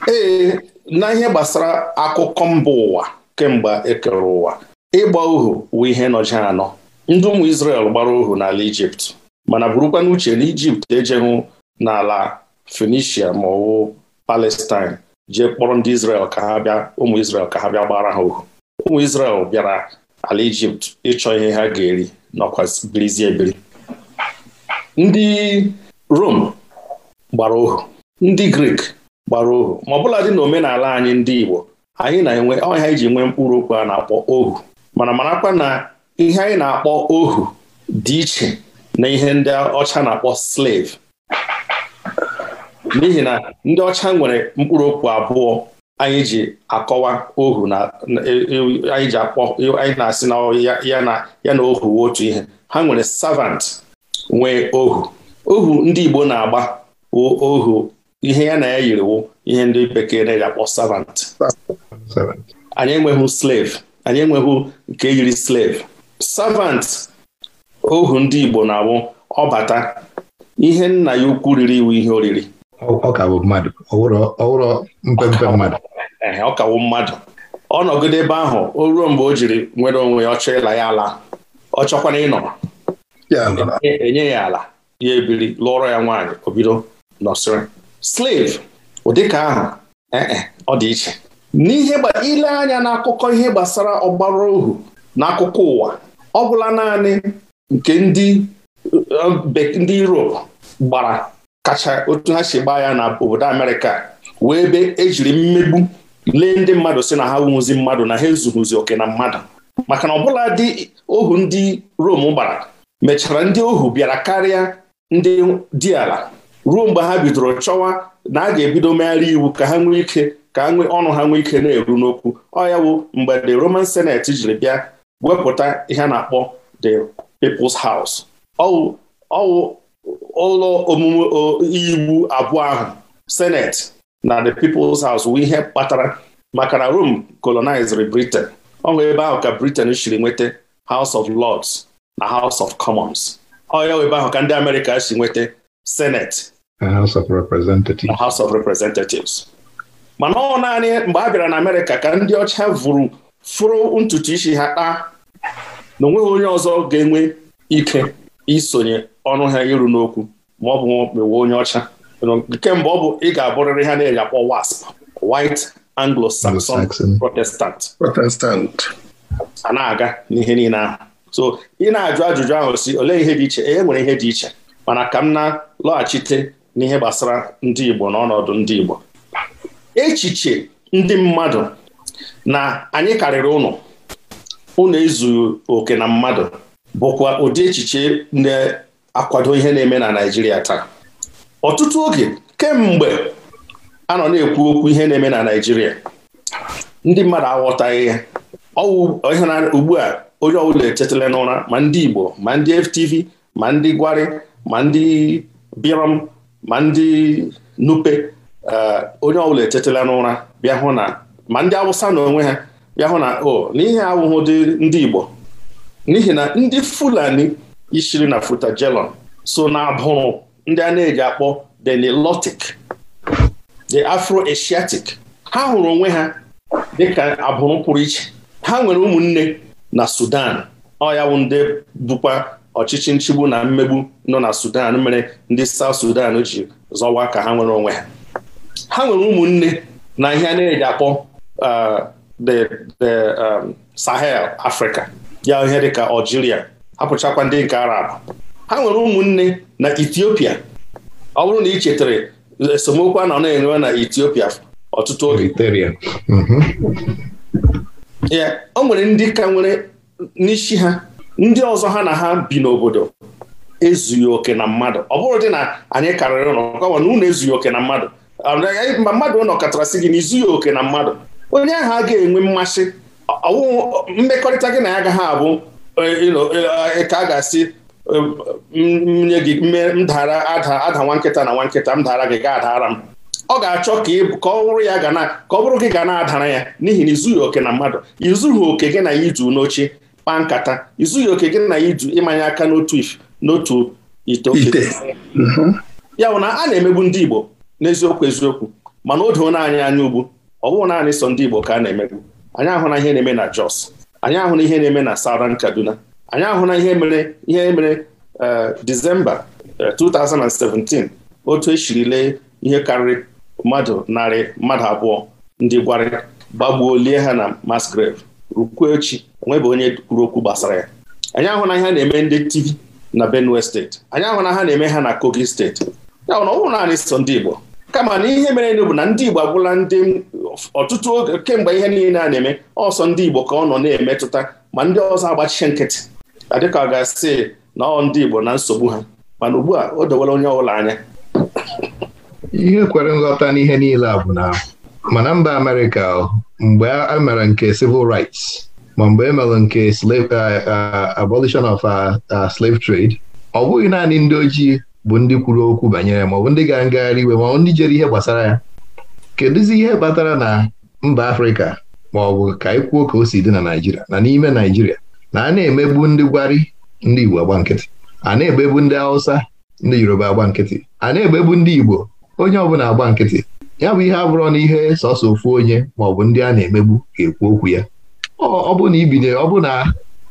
ee na ihe gbasara akụkọ mba ụwa kemgbe ekere ụwa ịgba ohu wụ ihe nọji anọ ndị ụmụ Izrel gbara ohu n'ala Ijipt mana burukwa n'uche na Ijipt ejeghụ n'ala fenicia ma ọwụ Palestine jee kpọrọ ndị Izrel ka ha bịa ụmụ Izrel ka ha bịa gbara ha ohu ụmụ Izrel bịara ala Ijipt ịchọ ihe ha ga-eri nọkwa birizie ebiri ndị Rom gbara ohu ndị Grik gbara ohu ma ọ bụla dị na omenala anyị ndị Igbo anyị na-enwe ọnya iji nwee mkpụrụ okwu a na-akpọ ohu mana marakwa na ihe anyị na-akpọ ohu dị iche na ihe ndị ọcha na-akpọ slave n'ihi na ndị ọcha nwere mkpụrụ okwu abụọ anyị ji akọwa ohu na e, e, anyị ji akpọ anyị na-asị na ya na ya na ohu otu ihe ha nwere savant nwee ohu ohu ndị Igbo na-agba ohu ihe ya na ya yiriwo ihe ndị bekee na-akpọ servant anyị enweghị slave anyị enweghị nke yiri slave servant ohu ndị Igbo na ọ ọbata ihe nna ya ukwu riri iwu ihe oriri ọkawo mmadụ ọwụrọ mmadụ ọkawo mmadụ ọ nọgide ebe ahụ o ruo mgbe o jiri nwere onwe ya ọchọ ịla ya ala ọ chọkwana ịnọ enye ya ala ya ebiri lụọrọ ya nwaanyị obido bido nọsịrị slave ụdị ka ahụ eh, eh, ọ dị iche n'ihe ile anya n'akụkọ ihe gbasara ọgbara ohu n'akụkọ ụwa ọ bụla naanị nke ndị eh, ndị Europe gbara kacha otu ha si gbaa ya na obodo Amerịka wee be ejiri mmegbu lee ndị mmadụ si na ha nwụzi mmadụ na ha ezughụzi oke na mmadụ maka na ọbụla dị ohu ndị rome gbara mechara ndị ohu bịara karịa ndị dị ala ruo mgbe ha bidoro chọwa na a ga-ebido megharị iwu ka ha nwee ike ka ọnụ ha nwee ike na-eru n'okwu ọ ya bụ mgbe the Roman Senate jiri bịa wepụta ihe a na-akpọ the People's House ọwụ ọwụ ụlọ omume iwu abụọ ahụ Senate na the People's House wụ ihe kpatara maka na Rome colonized Britain ọ hụ ebe ahụ ka Britain siri nweta House of Lords na House of Commons ọ ya ebe ahụ ka ndị Amerịka si nweta Senate House of Representatives. House of Representatives. mana ọ naanị mgbe a bịara na Amerịka ka ndị ọcha vụrụ fụrụ ntutu isi ha kpaa na onweghị onye ọzọ ga-enwe ike isonye ọnụ ha iru n'okwu ma ọ bụ mewe onye ọcha kemgbe ọ bụ ị ga-abụrịrị ha na-eji WASP White Anglo-Saxon Protestant Protestant a na-aga n'ihe niile ahụ so ị na-ajụ ajụjụ ahụ si olee ihe dị iche e, e nwere ihe dị iche mana ka m na-lọghachite n'ihe gbasara ndị Igbo n'ọnọdụ ndị Igbo echiche ndị mmadụ na anyị karịrị ụnụ ụnụ ezughị oke na mmadụ bụkwa ụdị echiche na-akwado ihe na-eme na Naịjirịa taa ọtụtụ oge kemgbe anọ na-ekwu okwu ihe na-eme na Naịjirịa ndị mmadụ aghọtaghị ya ọwụ ugbu a onye ọbụla etetala n'ụra ma ndị Igbo ma ndị FTV ma ndị Gwari ma ndị ma ndị nupe eh, onye ọbụla etetela n'ụra bịa hụ na ma ndị awụsa na onwe ha bịa hụ na o oh, n'ihi awụhụ dị ndị igbo n'ihi na ndị fulani ishiri na futajelon so na abụrụ ndị a na-eji akpọ the the afro-asiatic ha hụrụ onwe ha dịka abụrụ pụrụ iche ha nwere ụmụnne na sudan ọ ya bụ bụkwa ọchịchị nchigbu na mmegbu nọ na Sudan mere ndị South Sudan ji zọwa ka ha nwere onwe ha ha nwere ụmụnne na ihe a na-eji akpọ uh, the the um, Sahel Africa ya ihe dịka Algeria hapụchakwa ndị nke Arab ha nwere ụmụnne na Ethiopia ọ bụrụ na ị chetara esemokwu a nọ na-enwe na Ethiopia ọtụtụ oge ya mm-hmm. o nwere ndị ka nwere n'isi ha ndị ọzọ ha na ha bi n'obodo ezughị oke na mmadụ ọ bụrụ dị na anyị karịrị ụlọ kọwa na unu ezughị oke na mmadụ ma mmadụ ụlọ katarasị gị na izughị oke na mmadụ onye ahụ a ga-enwe mmasị mmekọrịta gị na ya agaghị abụ e, e, e, ka a ga-asị nye gị mdara ada nwa nkịta na nwa nkịta m dara gị ga adara m ọ ga-achọ ka ọ bụrụ ya ka ọ bụrụ gị ga na-adara ya n'ihi na izughị oke na mmadụ izughị oke gị na ya itu n'oche kpaa nkata izughị oke gị na ya iju ịmanye aka n'otu n'otu ite oke mhm. ya bụ na a na-emegbu ndị Igbo n'eziokwu eziokwu mana o doo naanị anya ugbu ọ bụghị naanị sọ ndị Igbo ka a na-emegbu anyị ahụna ihe na-eme na Jos anyị ahụna ihe na-eme na Southern Kaduna anyị ahụna ihe mere ihe mere eh, Disemba 2017 eh, otu esiri lee ihe karịrị mmadụ narị mmadụ abụọ ndị gwarị gbagbuo lie ha na mass rukwuo echi bụ onye kwuru okwu gbasara ya anyị ahụ na ihe a na-eme ndị TV na Benue steeti anyị ahụ na ha na-eme ha na Kogi steeti ya na ọ naanị so ndị Igbo kama na ihe mere bụ na ndị Igbo agwụla ndị ọtụtụ oge kemgbe ihe niile a na-eme ọsọ ndị Igbo ka ọ nọ na-emetụta ma ndị ọzọ agbachiche nkịtị adịka ọ ga-asị na ọ ndị Igbo na nsogbu ha mana ugbu a o dowela onye ọbụla anya ihe kwere nghọta n'ihe niile a bụ na mana mba Amerịka mgbe a mere nke civil rights ma mgbe e mere nke abolition of slave trade ọ bụghị naanị ndị ojii bụ ndị kwuru okwu banyere ma ọ bụ ndị ga ngagharị iwe maọbụ ndị jere ihe gbasara ya kedụzi ihe kpatara na mba Afrịka ma ọ bụ ka ị kwuo ka o si dị na Naịjirịa na n'ime Naịjirịa na a na-emegbu ndị Gwari ndị Igbo agba nkịtị a na-egbegbu ndị Hausa ndị Yoruba agba nkịtị a na-egbegbu ndị Igbo onye ọbụla agba nkịtị ya bụ ihe abụrọ n'ihe ihe sọsọ ofu onye maọbụ ndị a na-emegbu ga-ekwu okwu ya ọ bụ na ibinye ọ bụ na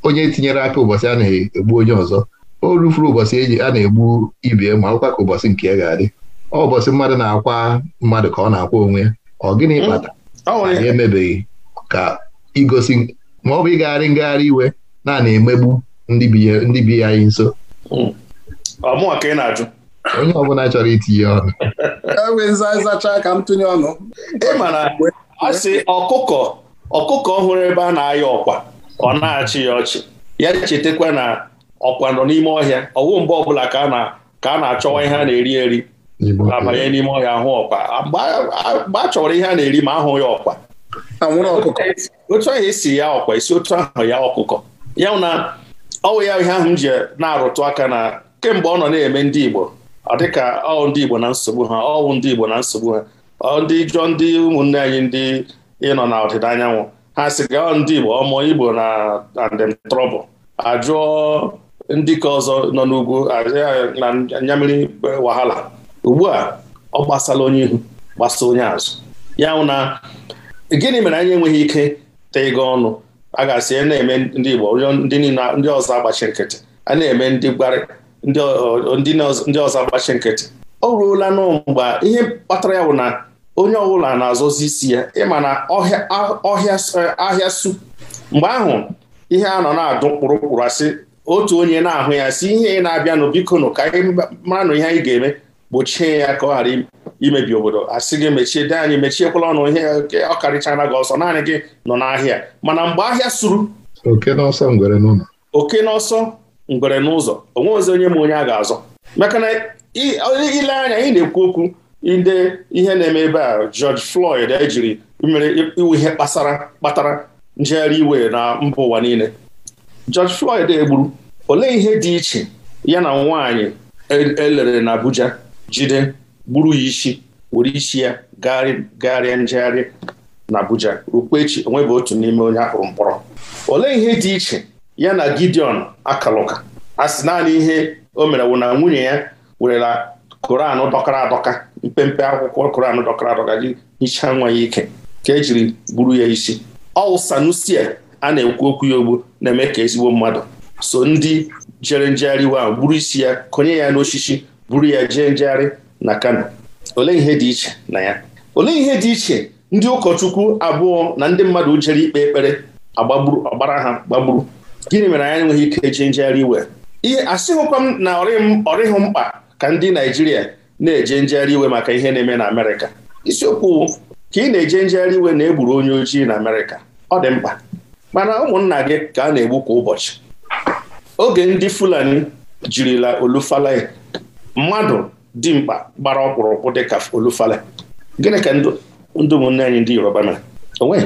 onye tinyere aka ụbọchị a na-egbu onye ọzọ o rufuru ụbọchị eji a na-egbu ibe ma ọkwa ka ụbọchị nke ya ga-adị ọ ụbọchị mmadụ na-akwa mmadụ ka ọ na-akwa onwe ya ọ gịnị mm. kpata anyị emebeghị ka igosi ma ọ bụ ịgagharị ngagharị iwe na na-emegbu ndị bi anyị nso mm. ọmụwa ka ị na-ajụ onye ọbụla chọrọ itinye ọnụ enwezi ka m tụnye ọnụ ị ọkụkọ ọkụkọ ọhụrụ ebe a na-ayọ ọkwa ọ na-achị ya ọchị ya chetakwa na ọkwa nọ n'ime ọhịa ọwụ mgbe ọbụla ka a na-achọwa ihe a na-eri eri abanye n'ime ọhịa ahụ ọkwa mgbe a ihe a na-eri ma ahụ ya ọkwa otu ahụ esi ya ọkwa esi otu ahụ ya ọkụkọ ya na ọwụ ya ihe ahụ m ji na-arụtụ aka na kemgbe ọ nọ na-eme ndị Igbo ọ dịka ọ ndị Igbo na nsogbu ha ọwụ ndị Igbo na nsogbu ha ọ ndị jụọ ndị ụmụnne anyị ndị ịnọ na ọdịda anyanwụ ha sị gaa ndị Igbo ọmụ Igbo na andem trọbụl ajụọ ndị ka ọzọ nọ n'ugwu na nyamiri wahala ugbu a ọ gbasala onye ihu gbasa onye azụ ya wụ na gịnị mere anyị enweghị ike tego ọnụ a ga-asị e na-eme ndị Igbo ndị ọzọ agbachi nkịtị a na-eme ndị gbarị ndị ọzọ agbachi nkịtị o ruola n'ụ mgbe ihe kpatara ya bụ na onye ọbụla na-azọzi isi ya ịma na ahịa su mgbe ahụ ihe a nọ na-adụ kpụrụkpụrụ asị otu onye na-ahụ ya si ihe ị na-abịanụ bikonụ ka anyị nụ ihe anyị ga-eme gbochie ya ka ọ ghara imebi obodo asị gị mechie dị anyị mechiekwala ọnụ ihe ọ karịchara gị ọsọ naanị gị nọ n'ahịa mana mgbe ahịa suru oke n'ọsọ ngwere n'ụzọ onwe ozi onye ma onye a ga-azọ maka na ile anya ị na-ekwu okwu ide ihe na-eme ebe a George Floyd ejiri mere iwu ihe kpasara kpatara njegharị iwe na mba ụwa niile George Floyd egburu olee ihe dị iche ya na nwaanyị elere e na Abuja jide gburu ya isi were isi ya gagharịa njegharị na Abuja rukwa echi onwebụ otu n'ime onye akpụrụ mkpọrọ olee ihe dị iche ya na Gideon akalụka a sị naanị ihe o mere wụ na nwunye ya werela koran dọkara adọka mpempe akwụkwọ koran dọkara adọka gị hichaa nwa ya ike ka ejiri gburu ya isi ọwụ Sanusia a na-ekwu okwu ya ogbu na-eme ka ezigbo mmadụ so ndị jere njegharị wa gburu isi ya konye ya n'osisi buru ya jee njegharị na Kano olee ihe dị iche na ya olee ihe dị iche ndị ụkọchukwu abụọ na ndị mmadụ jere ikpe ekpere ọgbara ha gbagburu gịnị mere anyị enweghị ike eji njegharị iwe ihe asịghịkwa m na ọrịghị mkpa ka ndị Naijiria na-eje njegharị iwe maka ihe na-eme na Amerịka isiokwu ka ị na-eje njegharị iwe na egburu onye ojii na Amerịka ọ dị mkpa mana ụmụnna gị ka a na-egbu kwa ụbọchị oge ndị Fulani jirila olufale mmadụ dimkpa gbara ọkpụrụkpụ ka olufale gịnị ka ndị ụmụnne anyị ndị Yoruba mere onwe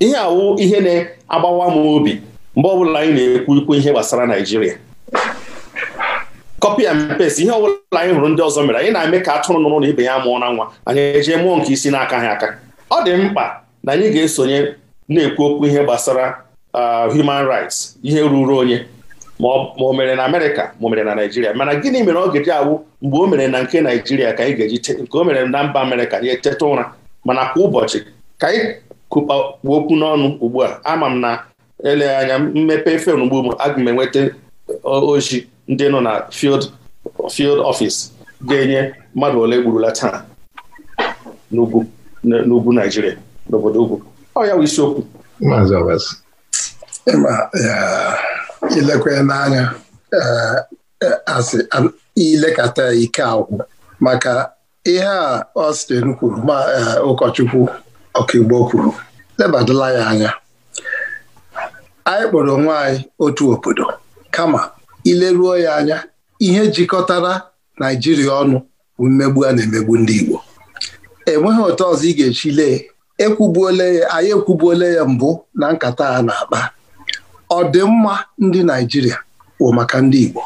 ihe awụ ihe na-agbawa m obi mgbe ọbụla anyị na-ekwu ikwu ihe gbasara Naịjirịa kọpị and paste ihe ọbụla anyị hụrụ ndị ọzọ mere anyị na-eme ka atụrụ nụrụ na ibe ya mụọ na nwa anyị eje mụọ nke isi n'aka ha aka ọ dị mkpa na anyị ga-esonye na-ekwu okwu ihe gbasara uh, human rights ihe ruru onye ma o mere na Amerịka ma o mere na Naịjirịa mana gịnị mere ọ ga-eji awụ mgbe o mere na nke Naịjirịa ka anyị ga-eji nke o mere na mba Amerịka anyị eteta ụra mana kwa ụbọchị ka anyị kụkpa okwu n'ọnụ ugbu a ama m na eleghị anya mmepe fem ugbu m aga m enweta oji ndị nọ na field field office ga-enye mmadụ ole gburula taa n'ugwu n'ugwu Naijiria n'obodo ugwu ọ ya bụ isiokwu ilekwe n'anya asị ilekata ike agwụ maka ihe a Austin kwuru ma ụkọchukwu ọkaigbo kwuru lebadala ya anya anyị kpọrọ onwe anyị otu obodo kama ileruo ya anya ihe jikọtara naijiria ọnụ bụ mmegbu a na-emegbu ndị Igbo enweghị otu ọzọ ị ga-echi lee ekwubuole ya anyị ekwubuole ya mbụ na nkata a na-akpa ọdịmma ndị Naịjirịa bụ maka ndị Igbo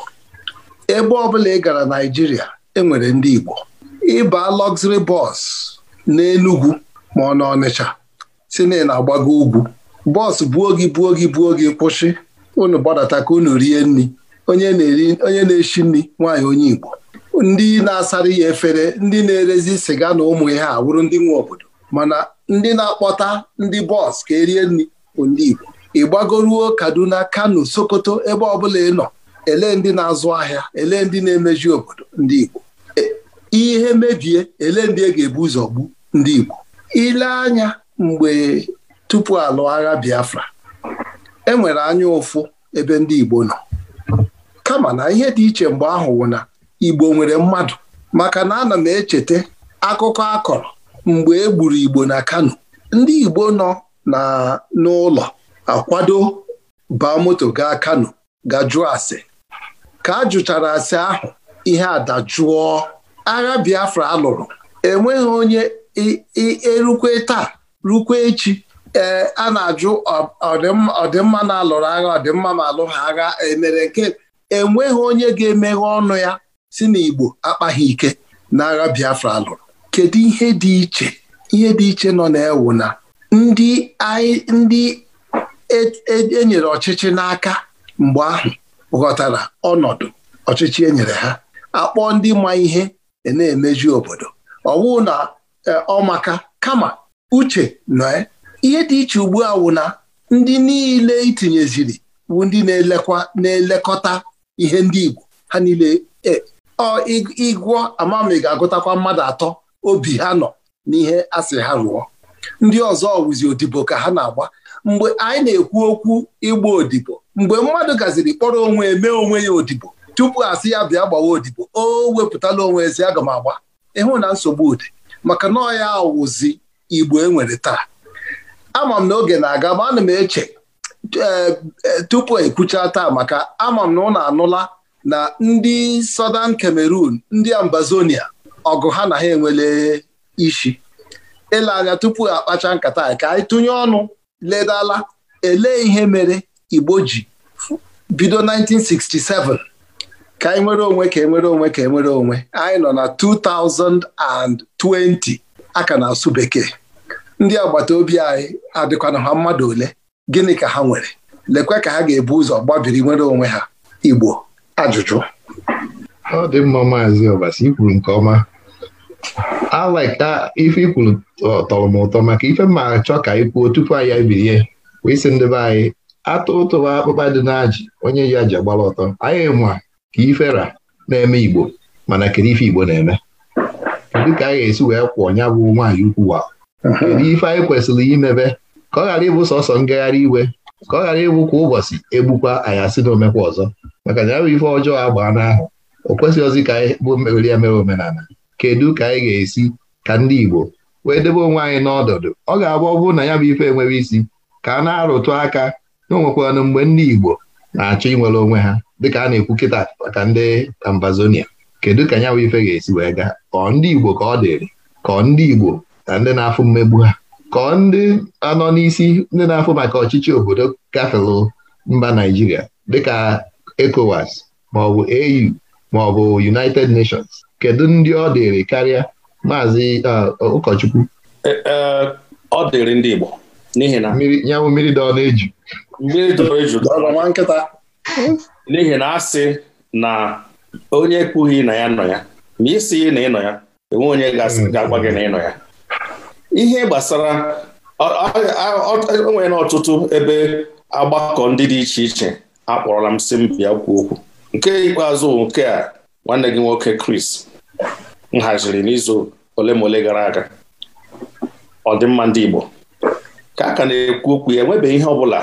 ebe ọbụla ị gara Naịjirịa enwere ndị Igbo ịba luxury bọs n'Enugu ma ọ na Ọnịcha si na na-agbago ugwu bọs buo gị buo gị buo gị kwụsị unu gbadata ka unu rie nri onye na-eri onye na-eshi nri nwaanyị onye Igbo ndị na-asara ya efere ndị na-erezi sịga na ụmụ ihe a wụrụ ndị nwe obodo mana ndị na-akpọta ndị bọs ka erie nri bụ ndị Igbo ịgbagoruo Kaduna Kano Sokoto ebe ọbụla ị nọ ele ndị na-azụ ahịa ele ndị na-emeji obodo ndị Igbo ihe mebie ele ndị e ga-ebu ụzọ gbu ndị Igbo ile anya mgbe tupu alụ agha Biafra e nwere anya ụfụ ebe ndị Igbo nọ kama na ihe dị iche mgbe ahụ wụ na Igbo nwere mmadụ maka na ana m echeta akụkọ akọrọ mgbe e gburu Igbo na Kano ndị Igbo nọ na n'ụlọ akwado baa moto gaa Kano gajụọ ase ka a jụchara ase ahụ ihe adajụọ agha Biafra alụrụ, enweghị onye erukwe taa rukwe echi ee a na-ajụ ọdịmma na-alụrụ agha ọdịmma ma alụghị agha emere nke enweghị onye ga-emeghe ọnụ ya si na Igbo akpaghị ike na agha Biafra lụrụ kedu ihe dị iche ihe dị iche nọ na-ewu na ndị ndị enyere e, e ọchịchị n'aka mgbe ahụ ghọtara ọnọdụ ọchịchị enyere ha akpọ ndị ma ihe e na-emeju obodo ọ na ọ kama uche nọ ihe dị iche ugbu a wụ na ndị niile itinyeziri bụ ndị na-elekwa na-elekọta ihe ndị Igbo ha niile e, ịgwọ amami ga-agụtakwa mmadụ atọ obi ha nọ n'ihe asị ha rụọ ndị ọzọ wụzi odibo ka ha na-agba mgbe anyị na-ekwu okwu ịgba odibo mgbe mmadụ gaziri kpọrọ onwe mee onwe ya odibo tupu asị ya bịa gbawa odibo o wepụtala onwe ezi aga m agba ịhụ na nsogbu ụdị maka na ọ ya awụzi Igbo enwere taa ama m na oge na-aga ma ana m eche eh, eh, tupu ekwucha taa maka ama m na anụla na ndị sọdan Cameroon ndị Ambazonia ọgụ ha na ha enwele isi ele anya tupu akpacha nkata ka anyị tụnye ọnụ ledala elee ihe mere Igbo ji bido 1967 ka anyị nwere onwe ka enwere onwe ka enwere onwe anyị nọ na 2020 aka na-asụ bekee ndị agbata obi anyị adịkwana ha mmadụ ole gịnị ka ha nwere lekwe ka ha ga-ebu ụzọ gbabiri nwere onwe ha Igbo ajụjụ ọ dị mma maazị Ọbasi ikwuru nke ọma alaka ife ikwuru tọrọ m ụtọ maka ife ma achọ ka anyị kwuo tupu anyị ebirie wee sị ndị be anyị atụ ụtụwa akpụkpa dị n'ajị onye ya ji agbara ọtọ anyị ma ka ifera na-eme Igbo mana kedu ife Igbo na-eme kedu ka a ga-esi wee kwụọ nya bụ nwaanyị ukwu wa kedu ife anyị kwesịrị imebe ka ọ ghara ịbụ sọsọ ngagharị iwe ka ọ ghara ịbụ kwa ụbọchị egbukwa anyị asị na omekwa ọzọ maka na ya bụ ife ọjọọ agbaa n'ahụ o ozi ka anyị bụ mmeri ya mere omenala kedu ka anyị ga-esi ka ndị Igbo wee debe onwe anyị n'ọdọdụ ọ ga-abụ ọ bụrụ na ya bụ ife enwere isi ka a na-arụtụ aka na onwekwanụ mgbe ndị Igbo na-achọ inwere onwe ha dịka a na-ekwu kịta maka ndị Ambazonia kedu ka ya bụ ife ga-esi wee gaa ọ ndị Igbo ka ọ dịrị ka ndị Igbo na ndị na-afụ mmegbu ha kọọ ndị anọ n'isi ndị na-afụ maka ọchịchị obodo gafelu mba Naijiria dịka ECOWAS maọbụ AU maọbụ United Nations kedu ndị ọ dịrị karịa maazị uh, ụkọchukwu e, e, ọ dịrị ndị Igbo n'ihi na nyanwụ mmiri dọọ na-eju mmiri dọọ eju nwa nkịta n'ihi na asị na onye ekpughị na ya nọ ya ma isi na ịnọ ya enwe onye ga-agwa gị na ịnọ ya ihe gbasara onwere na ọtụtụ ebe agbakọ ndị dị iche iche akpọrọla m si m bịa kwuo okwu nke ikpeazụ nke a nwanne gị nwoke kris m haziri n'izu ole ma ole gara aga ọdịmma ndị Igbo ka a ka na-ekwu okwu ya enwebeghị ihe ọbụla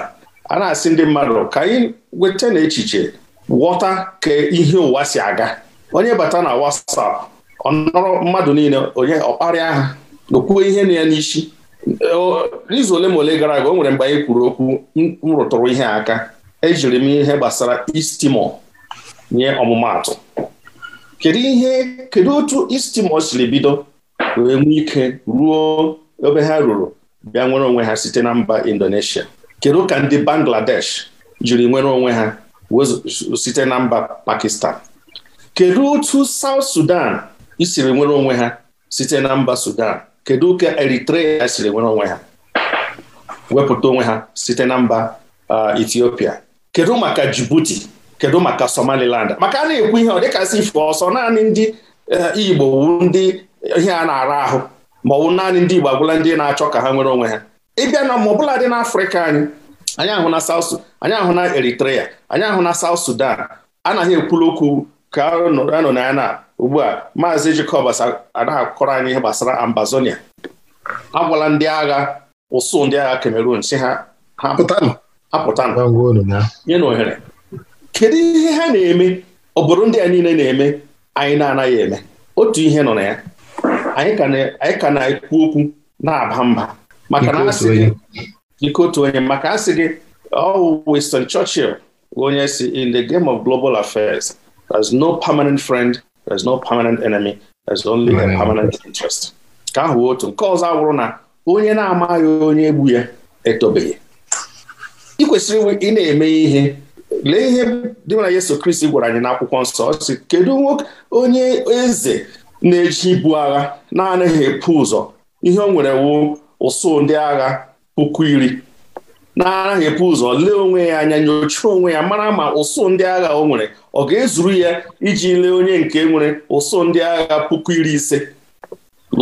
a na-asị ndị mmadụ ka anyị weta na echiche ghọta ka ihe ụwa si aga onye bata na WhatsApp ọ nọrọ mmadụ niile onye ọkparịa ha okwuo ihe na ya n'isi izu ole ma ole gara aga o nwere mgbe anyị kwuru okwu m rụtụrụ ihe aka ejiri m ihe gbasara istimo nye ọmụmaatụ kedu ihe kedu otu istimo siri bido wee nwee ike ruo ebe ha ruru bịa nwere onwe ha site na mba Indonesia kedu ka ndị Bangladesh jiri nwere onwe ha site na mba Pakistan kedu otu saut Sudan isiri nwere onwe ha site na mba Sudan kedu ka Eritrea siri nwere onwe ha wepụta onwe ha site na mba Ethiopia kedu maka Djibouti kedu maka Somaliland maka a na-ekwu ihe ọ dịkasị ife ọsọ naanị ndị Igbo wu ndị ihe a na-ara ahụ ma ọ bụ naanị ndị Igbo agwụla ndị na-achọ ka ha nwere onwe ha ịbịa na ma ọbụla dị n'Afrịka anyị anyị ahụ na South anyị ahụ na Eritrea anyị ahụ na South Sudan anaghị ekwulu okwu ka anọ na ya na ugbu a maazị Jacobs ana anyị ihe gbasara Ambazonia agwala ndị agha ụsụ ndị agha Cameroon si ha apụtanụ nye na ohere kedu ihe ha na-eme obodo ndị a niile na-eme anyị na-anaghị eme otu ihe nọ na ya anyị ka na-ekwu okwu na-aba mba maka na ike otu onye maka asị gị ọ oh, Winston Churchill onye si in the game of global affairs There's no permanent friend, there's no permanent enemy, there's only a mm. permanent interest. Ka ahụ otu nke ọzọ awụrụ na onye na-amaghị onye egbu ya etobeghị ị kwesịrị ị na-eme ihe lee ihe dị na Yesu Kristi gwara anyị akwụkwọ nsọ ọ kedu nwoke onye eze na-eji ibu agha na-anaghị epu ụzọ ihe o nwere wu ụsụ ndị agha puku iri na epu ụzọ lee onwe ya anya nyochaa onwe ya mara ma ụsụ ndị agha o nwere ọ ga-ezuru ya iji lee onye nke nwere ụsụ ndị agha puku iri ise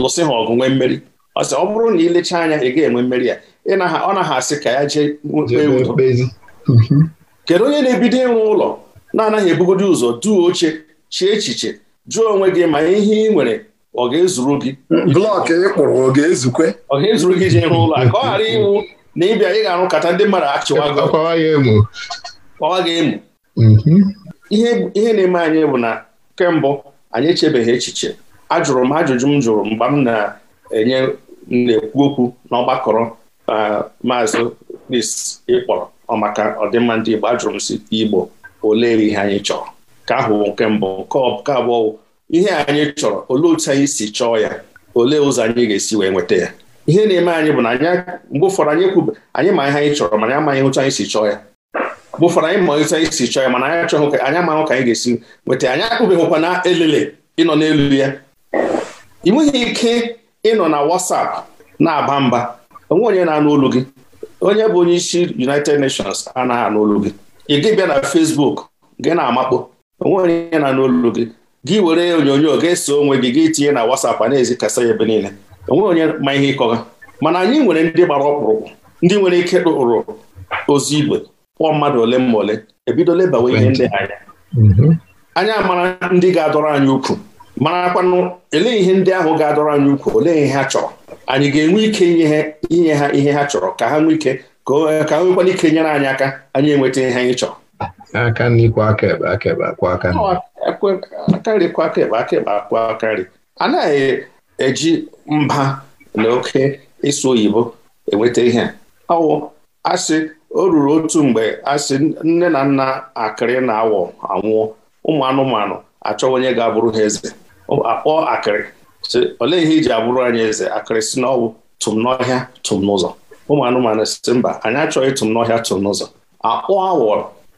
lụsị ha ọgụ nwee mmeri ọsị ọ bụrụ na ilechaa anya ị ga-enwe mmeri ya ọ naghị asị ka ya jee mhm. kedu onye na-ebido ịrụ ụlọ na-anaghị ebugodi ụzọ duo oche chie echiche jụọ onwe gị ma ihe ị nwere ọ ga-ezuru gị blọk ị ọ ga-ezukwe ọ ga-ezuru gị ịrụ ụlọ ka ọ ghara iwu na ịbịa ị ga-arụ kata ndị mmadụ achịwa gị emu mhm. ihe na-eme anyị bụ na kemgbe anyị echebeghị echiche ajụrụ m ajụjụ m jụrụ mgbe m na-enye na-ekwu okwu n'ọgbakọrọ maazị Chris ịkpọrọ maka ọdịmma ndị Igbo ajụrụ m si Igbo olee ihe anyị chọrọ ka ahụ nke mbụ nke abụọ ihe anyị chọrọ olee otu anyị si chọọ ya olee ụzọ anyị ga-esi wee nweta ya ihe na-eme anyị bụ na mgbe ụfọdụ anyị kwube anyị ma ihe anyị chọrọ mana amaghị otu anyị si chọọ ya mgbe ụfọdụ anyị ma otu anyị si chọọ ya mana anyị achọghị ka anyị amaghị ka anyị ga-esi nweta anyị akpụbeghịkwa na elele ịnọ n'elu ya ị nweghị ike ịnọ na WhatsApp na-aba mba onwe onye na-anụ olu gị onye bụ onye isi United Nations anaghị anụ olu gị ị gị bịa na Facebook gị na-amakpo onwe onye na-anụ olu gị gị were onyonyo ga-ese onwe gị gị tinye na WhatsApp a na-ezikasa ya ebe niile nweghị onye ma ihe ịkọga mana anyị nwere ndị gbara ọkpụrụkpụ ndị nwere ike rụrụ ozi igwe kpọọ mmadụ ole ma ole ebido lebawa ihe ndị anya mhm. anyị amara ndị ga-adọrọ anyị ukwu marakwanụ ele ihe ndị ahụ ga-adọrọ anyị ukwu olee ihe ha chọrọ anyị ga-enwe ike inye ha ihe ha chọrọ ka ha nwee ike ka ha nwekwana ike nyere anyị aka anyị enweta ihe anyị chọrọ aka n'ikwe aka ebe aka ebe akwa aka nri akwa aka ebe aka ebe akwa aka nri anaghị eji mba na oke ịsụ oyibo enweta ihe ọwụ asị o ruru otu mgbe asị nne na nna akịrị na awọ anwụọ ụmụ anụmanụ achọ onye ga-abụrụ ha eze Akpọ akịrị sị olee ihe iji abụrụ anyị eze akịrị si n'ọwụ tụm n'ọhịa tụm n'ụzọ ụmụ anụmanụ si mba anyị achọghị tụm n'ọhịa tụm n'ụzọ akpọọ awọ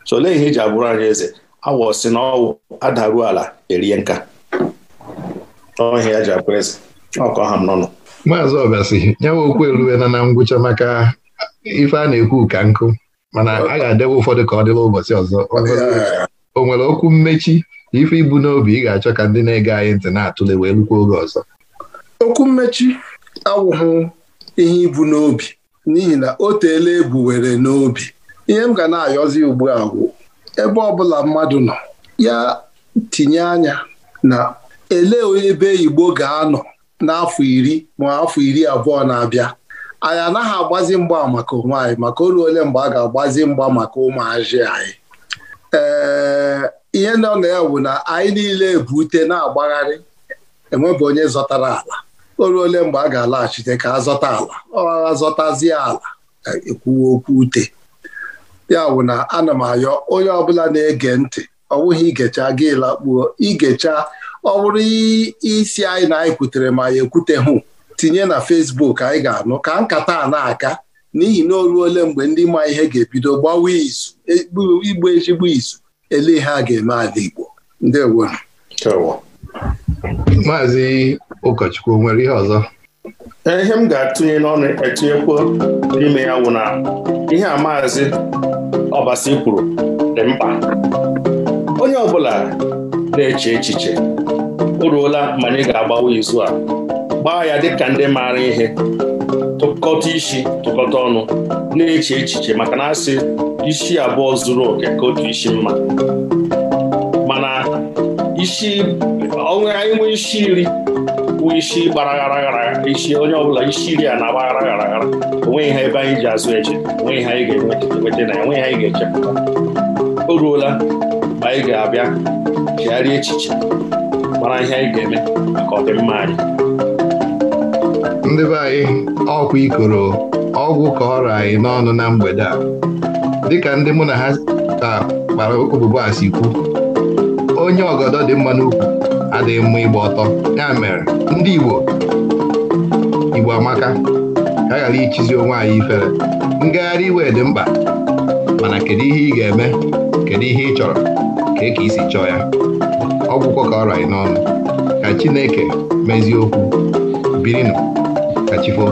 sị olee ihe iji abụrụ anyị eze awọ si n'ọwụ adaruo ala erie nka ọhịa ji abụrụ eze ọkọ ha nọ maazị ọbasi nyawa okwu eruwela na ngwụcha maka ife a na-ekwu ka nkụ mana a ga adewe ụfọdụ ka ọ dịla ụbọchị ọzọ o nwere okwu mmechi ife ibu n'obi ị ga-achọ ka ndị na-ege anyị ntị na-atụle wee lukwa oge ọzọ okwu mmechi awụghụ ihe ibu n'obi n'ihi na o teela ebu were n'obi ihe m ga na-ayọzi ugbu a bụ ebe bụla mmadụ nọ ya tinye anya na elee onye ebe Igbo ga-anọ n'afọ iri ma afọ iri abụọ na-abịa anyị anaghị agbazi mgba maka onwe anyị maka oru ole mgbe a ga-agbazi mgba maka ụmụazị anyị ee ihe nọ na ya bụ na anyị niile ute na-agbagharị enwebụ onye zọtara ala oru ole mgbe a ga-alaghachite ka azọta ala ọghara zọtazie ala e, ekwuwe okwu ute ya bụ na ana m ayọ onye ọbụla na-ege ntị ọ bụghị igecha gị lakpuo igecha ọ bụrụ isi anyị na anyị kwutere ma ya hụ tinye na Facebook anyị ga-anụ ka nkata a na-aga n'ihi na o ruole mgbe ndị ma ihe ga-ebido gbawa izu e, igbu ezigbo izu ele ihe a ga-eme ala Igbo ndewo maazị ụkọchukwu nwere ihe ọzọ e, ihe m ga-atụnye n'ọnụ etinyekwu n'ime ya wụ na ihe a maazị ọbasi kwuru dị mkpa onye ọbụla na-eche echiche oruola ụla ma anyị ga-agbawa izu a gbaa ya dịka ndị maara ihe tụkọta isi tụkọta ọnụ na-eche echiche maka na asị isi abụọ zuru oke ka otu isi mma mana isi onwe anyị nwee isi iri bụ isi gbaragharaghara isi onye ọbụla isi iri a na-agbagara gharaghara onweghị ha ebe anyị ji azụ eche onweghị ha anyị ga-enweta na enweghị anyị ga-echepụta o ruola ma anyị ga-abịa chegharịa echiche mara ihe anyị ga-eme maka ọdịmma anyị ndị be anyị ọkwa ikoro ọgwụ ka ọrụ anyị n'ọnụ na mgbede a dịka ndị mụ na ha ka kpara obubo a kwu. onye ọgọdọ dị mma n'ukwu adịghị mma ịgba ọtọ ya mere ndị Igbo Igbo amaka ka ghara ichizi onwe anyị ifere ngagharị iwe dị mkpa mana kedu ihe ị ga-eme kedu ihe ị chọrọ ka ị ka isi chọọ ya ọgwụkwọ ka ọ raị n'ọnụ ka Chineke mezie okwu birinụ ka chifo